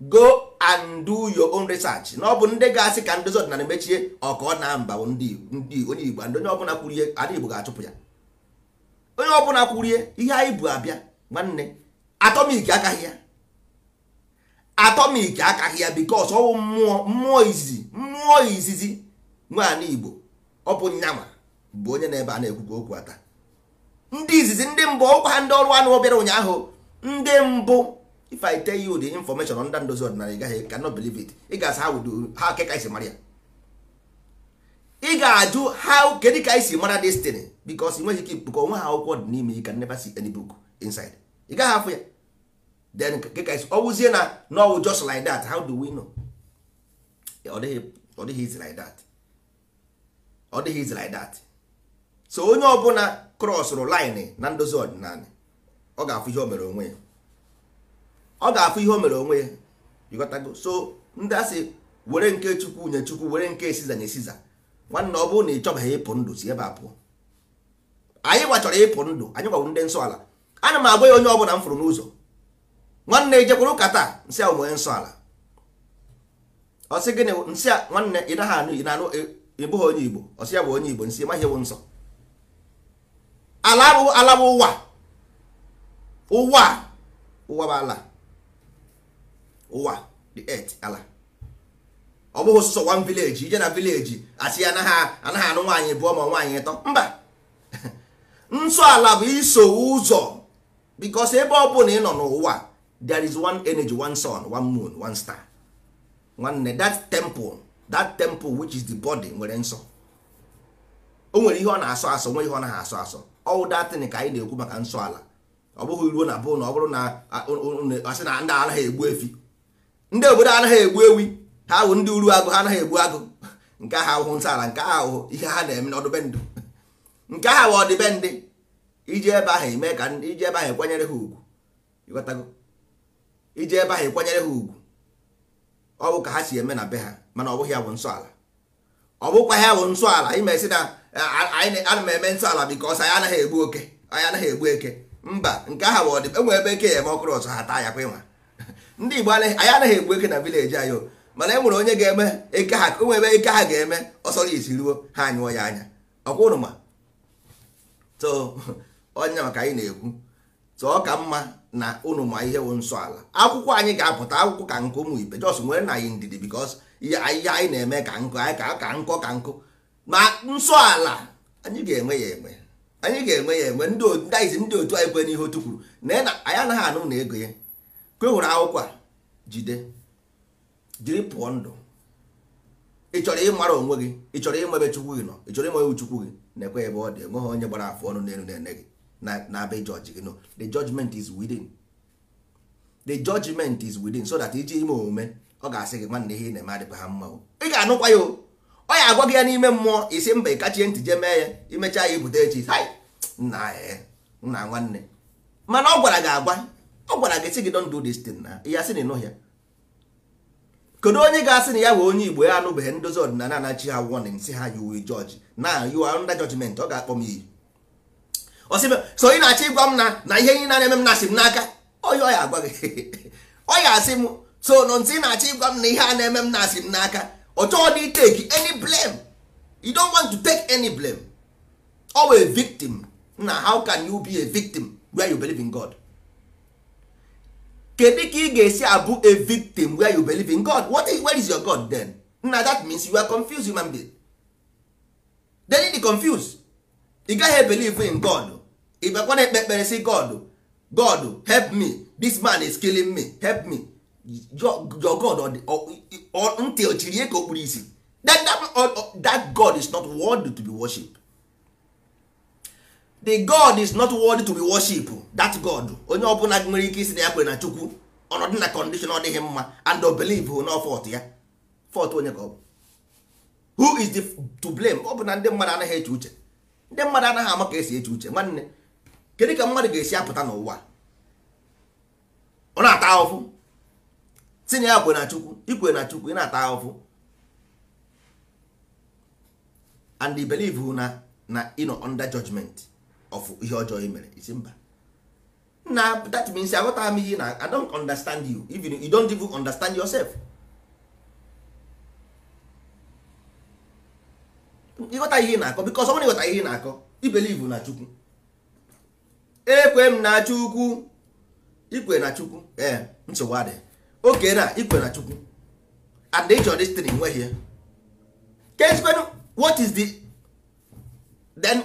go and do your own research na ọ bụ ndị ga-asị ka ndozi ọdịnala mechie ọka ọ na mba ndị onye Igbo onye ọbụla kwurie ana Igbo ga-achụpụ ya onye ọbụla kwurie ihe anyị bụ abịa nwanne atọmik akaghị ya atọmik akaghị ya bikos ọwụ mmụọ mmụọ izizi mmụọ izizi nwaanyị igbo ọ bụ nyanwa bụ onye na-ebe a na-ekwukwa okwu ata ndị izizi ndị mbụ ọkwa ha ndị ọrụ anụ obere ụnyaahụ ndị mbụ if i tell you the information ndị ndozi ọdịnala ị gaghị cannot believe it ị ga-asa ha wudo ha keka isi mara ya ị ga-ajụ ha kedụ ka isi mara destin bikos nweghị ike ikpukọ onwe ha akwụkwọ dị n'ime you can never see any book inside ị gaghị afụ ya then ọwụzie na n'ọwụ just like that how do we know ọ dịghị izi like that ọ dịghị izi like that so onye ọbụla krọsụrụ line e, na ndozi ọdịnala e, ọ ga-afụ ihe o mere onwe ya ọ ga-afụ ihe o mere onwe ya so ndị asị were nke chukwu nye chukwu were nke esiza nye esiza nwanne ọ bụrụ na ị chọbaghị ịpụ ndụ si ebe a pụọ anyị gbachọrọ ịpụ ndụ anyị gwawụ ndị nsọ ala ana m agwa ya onye ọbụla m fụrụ n'ụzọ nwanne ejekwuru ụka taa nsị a onwe nsọ ala ọsị gịnị nsị a nwanne ị naghị anụ ị na-anụ ịbụghị onye igbo ọsị sị ya bụ onye igbo nsị maghị ewu nsọ ala bụ ala bụ ụwa ụwa ụwa bụ ala ụwa the earth ala ọ bụghị sọsọ wan village ije na village asị ya anaghị anụ nwaanyị bụọ ma nwaanyị ịtọ mba *laughs* nsọ ala bụ iso ụzọ because ebe ọ bụla ị nọ n'ụwa there is one energy one sun one moon one star nwanne that temple that temple which is the body nwere nsọ o nwere ihe ọ na-asọ asọ nwere ihe ọ naghị asọ asọ all that ka anyị na-ekwu maka nsọ ala ọ bụghị ruo na bụ na ọ bụrụ na asị na ndị anaghị egbu efi ndị obodo anaghị egbu ewi ha ahụ ndị uru agụ ha anaghị egbu agụ nke ahụ ahụhụ nsọ ala nke ahụ ihe ha na-eme n'ọdịbendị nke ahụ ọdịbendị iji ebe ahụ eme ka iji ebe ahụ ekwenyere ha ugwu iji ebe ahụ ekwenyere ha ugwu ọ bụ ka ha si eme na be ha mana ọ bụghị ya bụ nsọala ọ bụkwa ya bụ nsọala imesi na ana m eme nsọala bikọs anyị anaghị egbu oke anyị anaghị egbu eke mba nke ahụ bụ ọdịbe enwe ebe eke ya eme ọkụrụ ọzọ ha taa ya kwa ịnwa *laughs* ndị Igbo anyị anaghị egbu eke na vileji anyị mana e nwere onye ga-eme eke ha enwe ebe eke ha ga-eme ọsọrọ isi ruo ha anyụọ ya anya ọkwa ụnụ *laughs* onye maka anyị na-ekwu tụọ ka mma na ụnụ ma ihe wụ nsọ ala akwụkwọ anyị ga-apụta akwụkwọ ka nkụ ụmụ ibe jos nwere na anyị ndidi bikos ihe anyị na-eme ka nkụ anyị ka ka nkọ ka nkụ ma nsọ ala anyị ga-enwe ya enwe anyị ga-enwe ya enwe ndị otu ndị otu anyị kwe n'ihe otu kwuru na anyị anaghị anụ na ego ya kwe e hụrụ akwụkwọ a jide jiri pụọ ndụ ị chọrọ ịmara onwe gị ị chọrọ ịmebe chukwu gị nọ ị chọrọ ịmebe chukwu gị na-ekwe ebe ọ dị enweghị onye gbara afọ ọnụ n'elu na-ene gị na be judge gị nọ the judgment is within the judgment is within so that iji ime omume ọ ga-asị gị nwanne ihe ị na-eme adịghị ha mma ị ga-anụkwa ya ọ ya agwa gị ya n'ime mmụọ isi mba ị ntị jee mee ya imechaa ya ibute echi nna nna nwanne mana ọ gwara gị agwa ọ gwara gị sị gị don do this thing na ya sị na ịnụ ya kedu onye ga-asị na ya bụ onye igbo ya anụbeghị ndozi ọdịnala anachi ha warning sị ha you will judge na you are under judgment ọ ga-akpọ m iyi so ị na-achọ ịgwa m na na ihe niile na-eme m na-asị m n'aka ọ ya agwa gị ọ ya asị m so no ntị ị na-achọ ịgwa m na ihe a na-eme m na-asị m n'aka ọ dị take any blame you don't want to take any blame owe victim na how can you be a victim where you believe in God kedu ka ị ga-esi abụ a victim where you believe in God what is, where is your God then na that means you are confused human being then ị dị confused ị gaghị ebelieve in God ịbakwa na-ekpe ekpere si god god help me this man is killing me help me your god ntị ochirie ka o kpuru isi that god is not worthy to be worship the god is not worthy to be worship that god onye ọbụla nwere ike isi na ya kwere na chukwu ọnọdụ na condition ọ dịghị mma and believe na fọt ya fọt onye ka ọ bụ who is the to blame ọ bụ na ndị mmadụ anaghị eche uche ndị mmadụ anaghị ama ka esi eche uche nwanne kedu ka mmadụ ga-esi apụta n'ụwa ọ na-ata ahụhụ tinye ya kwe na chukwu ikwe na chukwu ị na-ata ahụhụ and i believe na na ị nọ under judgment of ihe ọjọọ i e mere isi mba na that means aghọtara m ihe na i don't understand you even you don't even understand yourself ịghọta ihe ị na-akọ because ọ bụrụ ịghọta ihe ị na-akọ i believe na chukwu ekwe m na chukwu ikwe na chukwu ee nsogbu adị oke na ikwe na chukwu and the chọrọ destiny nweghị ya kezikwenu what is the then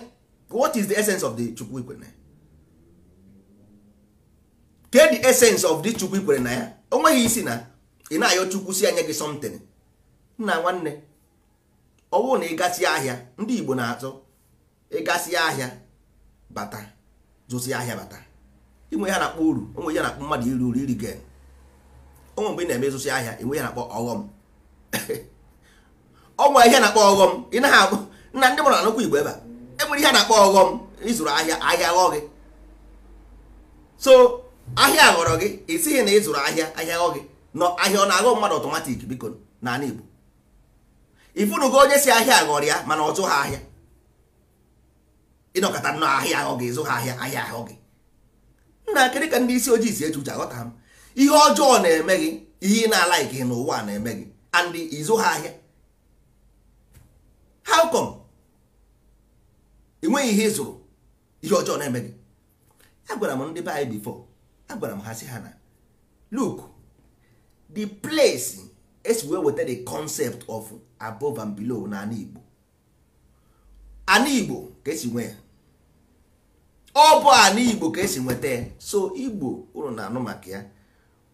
what is the essence of the chukwu ikwere na ya ke the essence of the chukwu ikwere na ya o nweghị isi na ị na-ayọ chukwu si anya gị something nna nwanne ọ bụrụ na ịgasị ahịa ndị igbo na-azọ ịgasị ahịa bata zụzi ahịa bata inwe ya na-akpọ uru onwe ya na-akpọ mmadụ iri uru iri gen onwe mgbe ị na-eme ịzụzi ahịa inwe ya na-akpọ ọghọm ọnwa *laughs* ihe na-akpọ ọghọm ị naghị akpọ nna ndị mụrụ anụkwa igbo ebe a enwere ihe na-akpọ ọghọm ịzụrụ ahịa ahịa ghọọ gị so ahịa ghọrọ gị esighị na ịzụrụ ahịa ahịa ghọọ gị nọ ahịa ọ na-aghọ mmadụ ọtọmatik biko n'ala igbo ifunugo onye si ahịa ghọrọ ya mana ọ ha ahịa ịnọkọta nọ ahịa ahụ gị ịzụ ha ahịa ahịa ahụ gị nna kedụ ka ndị isi ojii si eji uche aghọta m ihe ọjọọ na-eme gị ihe ị na-ala ike n'ụwa na-eme gị and ịzụ ha ahịa how come enweghị ihe ịzụrụ ihe ọjọọ na-eme gị agwara m ndị be anyị bifo agwara m ha si ha na look the place esi wee weta the concept of above and below na ana Igbo ka esi nwe ya ọ bụ ana igbo ka esi nweta ya so igbo ụrụ na-anụ maka ya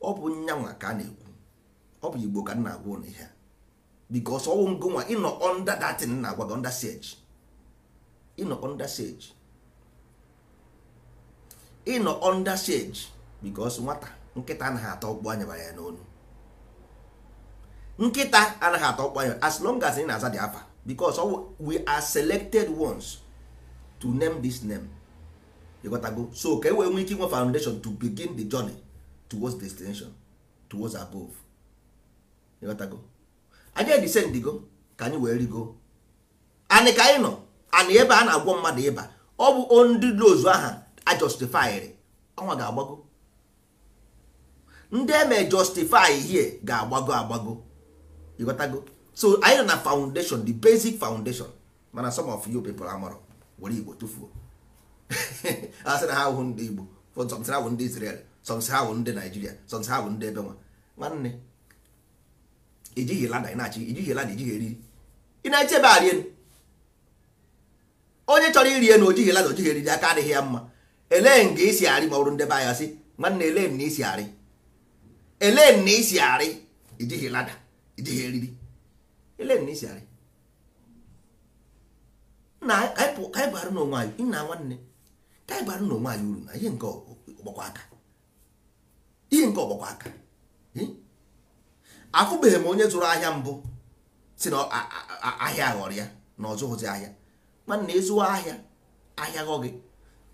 ọ bụ nyanwa ka a na-ekwu ọ bụ igbo ka m na-agwa ụnụ ihe because ọwụ ngonwa ịnọ under that na-agwa gị under siege ịnọ under siege ịnọ under siege because nwata nkịta anaghị atọ ọkpụ anya ya n'onu nkịta anaghị atọ ọkpụ anya as long as ị na-aza dị afa because we are selected ones to name this name ịghọtago so ka e wee ike inwe foundation to begin the journey towards destination towards above ịghọtago anyị go ka anyị wee rigo Anyị ka anyị nọ anyị ebe a na-agwọ mmadụ ịba ọ bụ ndị ozu aha a ọnwa ga-agbago ndị eme justify hie ga-agbago agbago ịghọtago so anyị nọ na foundation the basic foundation mana some of you people amụrụ were igbo tufuo. *laughs* asị na ha wụ ndị Igbo sọmsị ha wụ ndị Israel sọmsị ha wụ ndị Naijiria sọmsị ha wụ ndị ebe nwa nwanne ijighi lada ị na-achị ijighi lada ijighi eriri ị na-eche ebe a rie onye chọrọ iri enu ojighi lada ojighi eriri aka adịghị ya mma elee nga isi arị ma ọ bụrụ ndị be anya sị nwanne elee na isi arị elee na isi arị ijighi lada ijighi eriri elee na isi arị na anyị bụ arụ n'onwe anyị nna nwanne ka anyị na onwe anyị uru na ihe nke ọgbakwa aka ihe nke ọgbakwa aka afụbeghị m onye zụrụ ahịa mbụ si na ahịa ghọrọ ya na ọ ahịa mana ịzụwa ahịa ahịa ghọ gị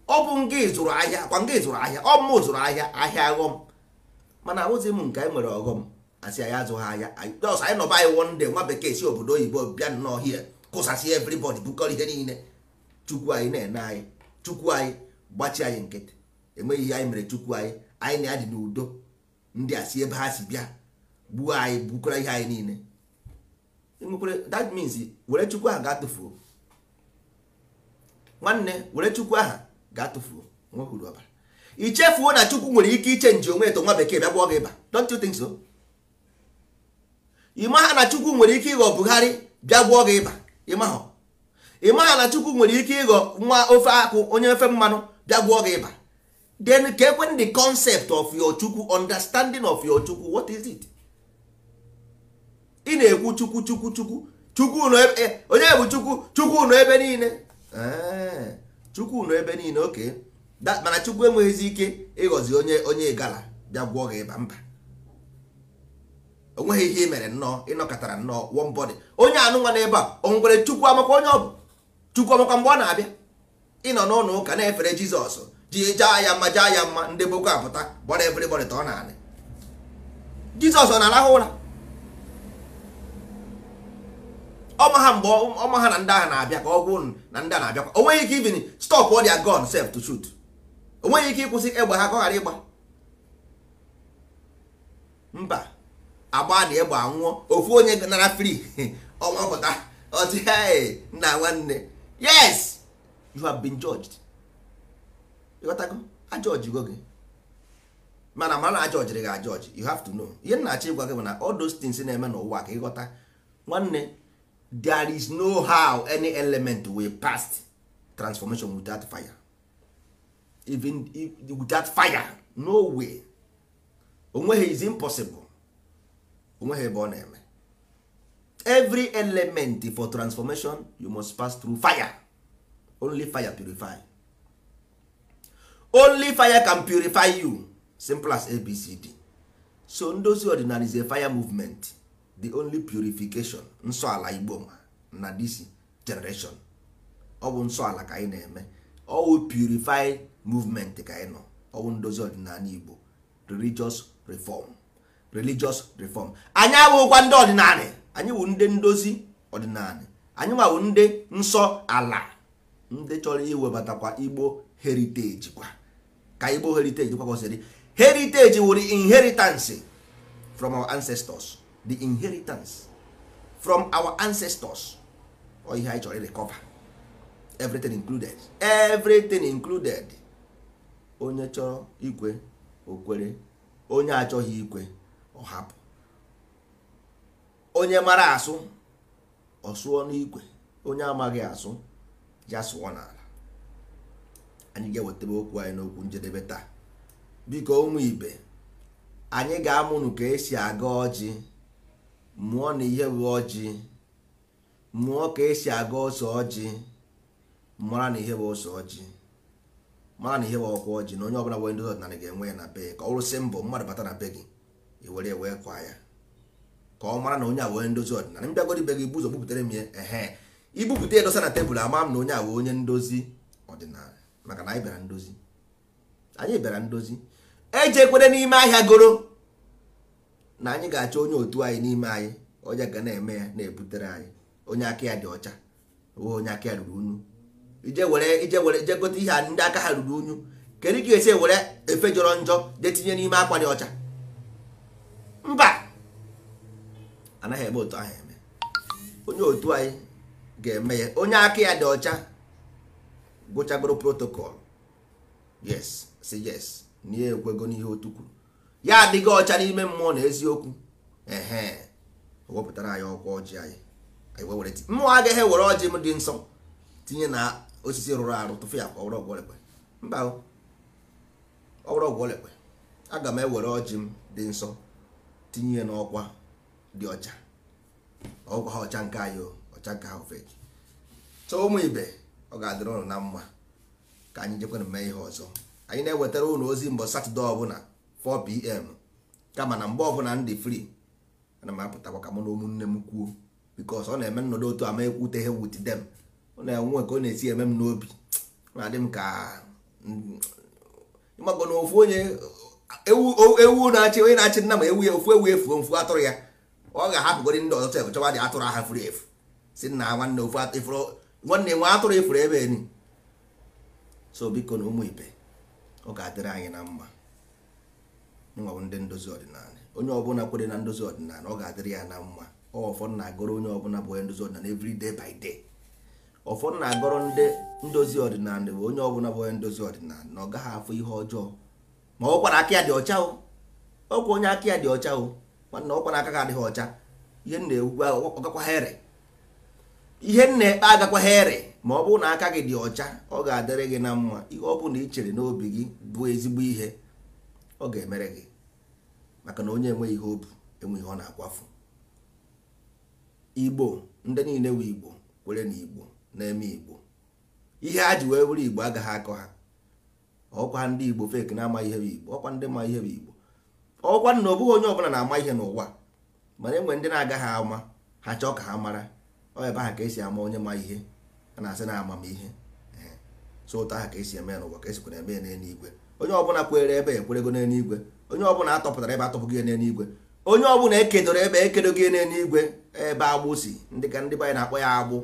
ọ bụ nga ịzụrụ ahịa kwa nga ịzụrụ ahịa ọ mụ zụrụ ahịa ahịa aghọm mana ahụzi m nke anyị nwere ọghọm asị anyị azụghị ahịa ọsọ anyị nọba anyị wonde nwa bekee si obodo oyibo bịa n'ọhịa kụsasị everybody bukọrọ ihe niile chukwu anyị na-ene anyị chukwu anyị gbachi anyị nkịtị enweghị ihe anyị mere chukwu anyị anyị na adị n'udo ndị a si ebe ha si bịa gbuo anyị gbukwara ihe anyị niile that means were chukwu aha ga-atụfuo nwanne were chukwu aha ga-atụfuo nwekwuru ọbara ichefuo na chukwu nwere ike iche nji onwe eto nwa bekee bịa gbuo gị ịba don't you think so ha na chukwu nwere ike ịghọ bugharị bịa gbuo gị ịba ịmaha ị maghị na chukwu nwere ike ịghọ nwa ofe akwụ onye ofe mmanụ bịa gwụọ gị ịba then ka ekwen the concept of your chukwu understanding of your chukwu what is it ị na-ekwu chukwu chukwu chukwu chukwu ebe eh, onye bụ chukwu chukwu nọ ebe niile eh, chukwu nọ ebe niile oke mana chukwu enweghịzi ike ịghọzi onye onye gala bịa gwụọ gị ịba mba onweghị ihe ị mere nnọọ ịnọkọtara nnọọ one body onye anụnwa n'ebe a o nwere chukwu amakwa onye ọ bụ chukwu mgbe ọ na-abịa ịnọ n'ụlọ ụka na-efere jizọs ji jaa ya mma jaa ya mma ndị boko apụta gbara efere ta ọ na-anị jizọs ọ na-arahụ ụra ọma ha mgbe ọma ha na ndị ahụ na-abịa ka ọ gwụ na ndị a na-abịakwa o nweghị ike ibini stop all their gun sef to shoot o nweghị ike ịkwụsị egbe ha ka ọ ghara ịgba mba agba na egbe anwụọ ofu onye nara fri *laughs* ọnwa pụta ọtị nna nwanne yes you have been judged ịghọtago go gị mana mara na ajọjiri gị ajọji you have to know ihe nna achọ ịgwa gị na all those things na-eme n'ụwa ka ịghọta nwanne there is no how any element wey pass transformation without fire even without fire no way onweghị is impossible onweghị ebe ọ na-eme every element for transformation you must pass through fire only fire purify only fire can purify you simple as abcd so ndozi ọdịnala is a fire movement the only purification nsọ ala igbo na this generation ọ bụ nsọ ala ka anyị na-eme ọwụ purify movement ka anyị nọ ọwụ ndozi ọdịnala igbo religious reform religious reform anyị abụghịkwa ndị ọdịnala anyị wụ ndị ndozi ọdịnala anyị nwawu ndị nsọ ala ndị chọrọ iwebatakwa igbo heriteji kwa ka igbo heriteji kwa kwesịrị heriteji wụrụ inheritance from our ancestors the inheritance from our ancestors ọ ihe anyị chọrọ irecover everything included everything included onye chọrọ ikwe okwere onye achọghị ikwe ọ hapụ onye mara asụ ọ sụọ n'igwe onye amaghị asụ ya sụọ n'ala anyị ga-ewetara okwu anyị n'okwu njedebe taa biko ụmụ ibe anyị ga-amụnụ ka esi aga ọjị mụọ na ihe bụ ọjị mụọ ka esi aga ọsọ ọjị mara na ihe bụ ọsọ ọjị mara na ihe bụ ọkwa ọjị na onye ọbụla nwere ndị ọdịnala ga-enwe ya na be ka ọ rụsị mbọ mmadụ bata na be gị were kwa ya ka ọ mara na onye a wee ndozi ọdịnala m bịagoro ibe gị ibu ụzọ bupụtara m ya ehe ibupụta ya dosa na tebụl ama m na onye a wee onye ndozi ọdịnala maka na anyị bịara ndozi anyị bịara ndozi ejekwere n'ime ahịa goro na anyị ga-achọ onye otu anyị n'ime anyị onye ga na-eme ya na-ebutere anyị onye aka ya dị ọcha onye aka ya ruru unyu ije were ije were ije gote ihe ndị aka ha ruru unyu kedu ka esi were efe jọrọ njọ jee tinye n'ime akwa dị ọcha mba anaghị eme otu ahụ eme onye otu anyị ga-eme ya onye aka ya dị ọcha gụchagoro protocol yes si yes na ya ekwego n'ihe otu kwuru ya adịghị ọcha n'ime mmụọ na eziokwu ehe wepụtara anyị ọkwa ọjị anyị anyị mmụọ agaghị ewere ọjị m dị nsọ tinye na osisi rụrụ arụ tụfu ya kwa ọgwụ ọgwọlekwe mba ọgwụ ọgwọlekwe aga m ewere ọjị m dị nsọ tinye n'ọkwa dị ọcha ọgwụ ha ọcha nke anyị ọcha nke ha ofeki so ụmụ ibe ọ ga-adịrị ụnụ na mma ka anyị jekwana mee ihe ọzọ anyị na-ewetara ụlọ ozi mbọ satọde ọbụla 4pm kama na mgbe ọbụla ndị free ana m apụtakwa ka mụ na ụmụnne m kwuo bikos ọ na-eme nnọdụ otu ama ekwuteghe wit dem ọ na-enwe ka ọ na-esi eme m n'obi na-adị m ka mm, ịmagọ na ofu onye ewu na-achị onye na-achị nna m ewu ya ofu ewu efuo mfu atụrụ ya ọ ga-ahapụgori ndị ọzọ chọrọ chọwa dị atụrụ aha furu efu si na nwanne ofu atụrụ nwanne nwe atụrụ efuru ebe ni so biko na ụmụ ibe ọ ga-adịrị anyị na mma nwa ndị ndozi ọdịnala onye ọbụla kwere na ndozi ọdịnala ọ ga-adịrị ya na mma ọfọ na-agọrọ onye ọbụla bụ onye ndozi ọdịnala every day by day ọfọ na-agọrọ ndị ndozi ọdịnala bụ onye ọbụla bụ onye ndozi ọdịnala na ọ gaghị afụ ihe ọjọọ ma ọ kwara aka ya dị ọcha o ọkwa onye aka ya dị ọcha o nwanne ọkwa na-aka adịghị ọcha ihe nna ewugwe ọgakwa ihe nna ekpe agakwa here ma ọ bụrụ na aka gị dị ọcha ọ ga-adịrị gị na mma ihe ọ bụla ị chere n'obi gị bụ ezigbo ihe ọ ga-emere gị maka na onye enweghị ihe obu enweghị ọ na-akwafu igbo ndị niile wee igbo kwere na igbo na-eme igbo ihe ha ji wee were igbo agaghị akọ ha ọkwa ndị igbo fek na-amaghị ihe bụ igbo ọkwa ndị ma ihe bụ igbo ọkwa na ọ bụghị onye ọbụla na-ama ihe n'ụwa mana enwe ndị na-agaghị ama ha chọọ ka ha mara ọ ebe ha ka esi ama onye ma ihe a na-asị na amamihe so ụtọ ha ka esi eme n'ụwa ka esikwana eme n'eluigwe onye ọbụla kwere ebe ekwerego n'eluigwe onye ọbụla atọpụtara ebe atọpụgị ya n'eluigwe onye ọbụla ekedoro ebe ekedoghị n'eluigwe ebe agbụsi ndị ka ndị banyị na-akpọ ya agbụ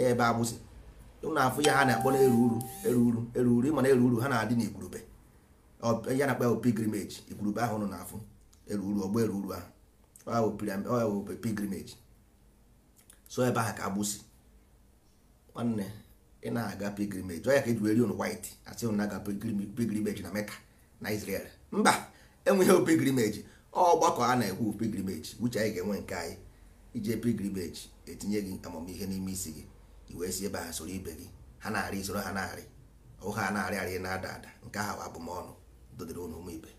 ebe agbụsi ụnụ afụ ya ha na-akpọ na eru uru eru uru eru eru uru ha na-adị n'igwurube ya na-akpa bụ pilgrimage igurube ahụ nọ n'afọ eruru ọgbọ eruru ahụ ọya bụ pilgrimage so ebe ahụ ka agbụsi nwanne ị na-aga pilgrimage ọya ka eji weri on white asị na aga pilgrimage na meka na Israel mba enweghị pilgrimage ọgbakọ a na-ekwu pilgrimage uche anyị ga-enwe nke anyị ije pilgrimage etinye gị amamihe n'ime isi gị wee si ebe ha soro ibe gị ha na-arị soro ha na-arị ụha na-arị arị na-ada ada nke ahụ abụmọnụ dọdịrị ụnụ me ibe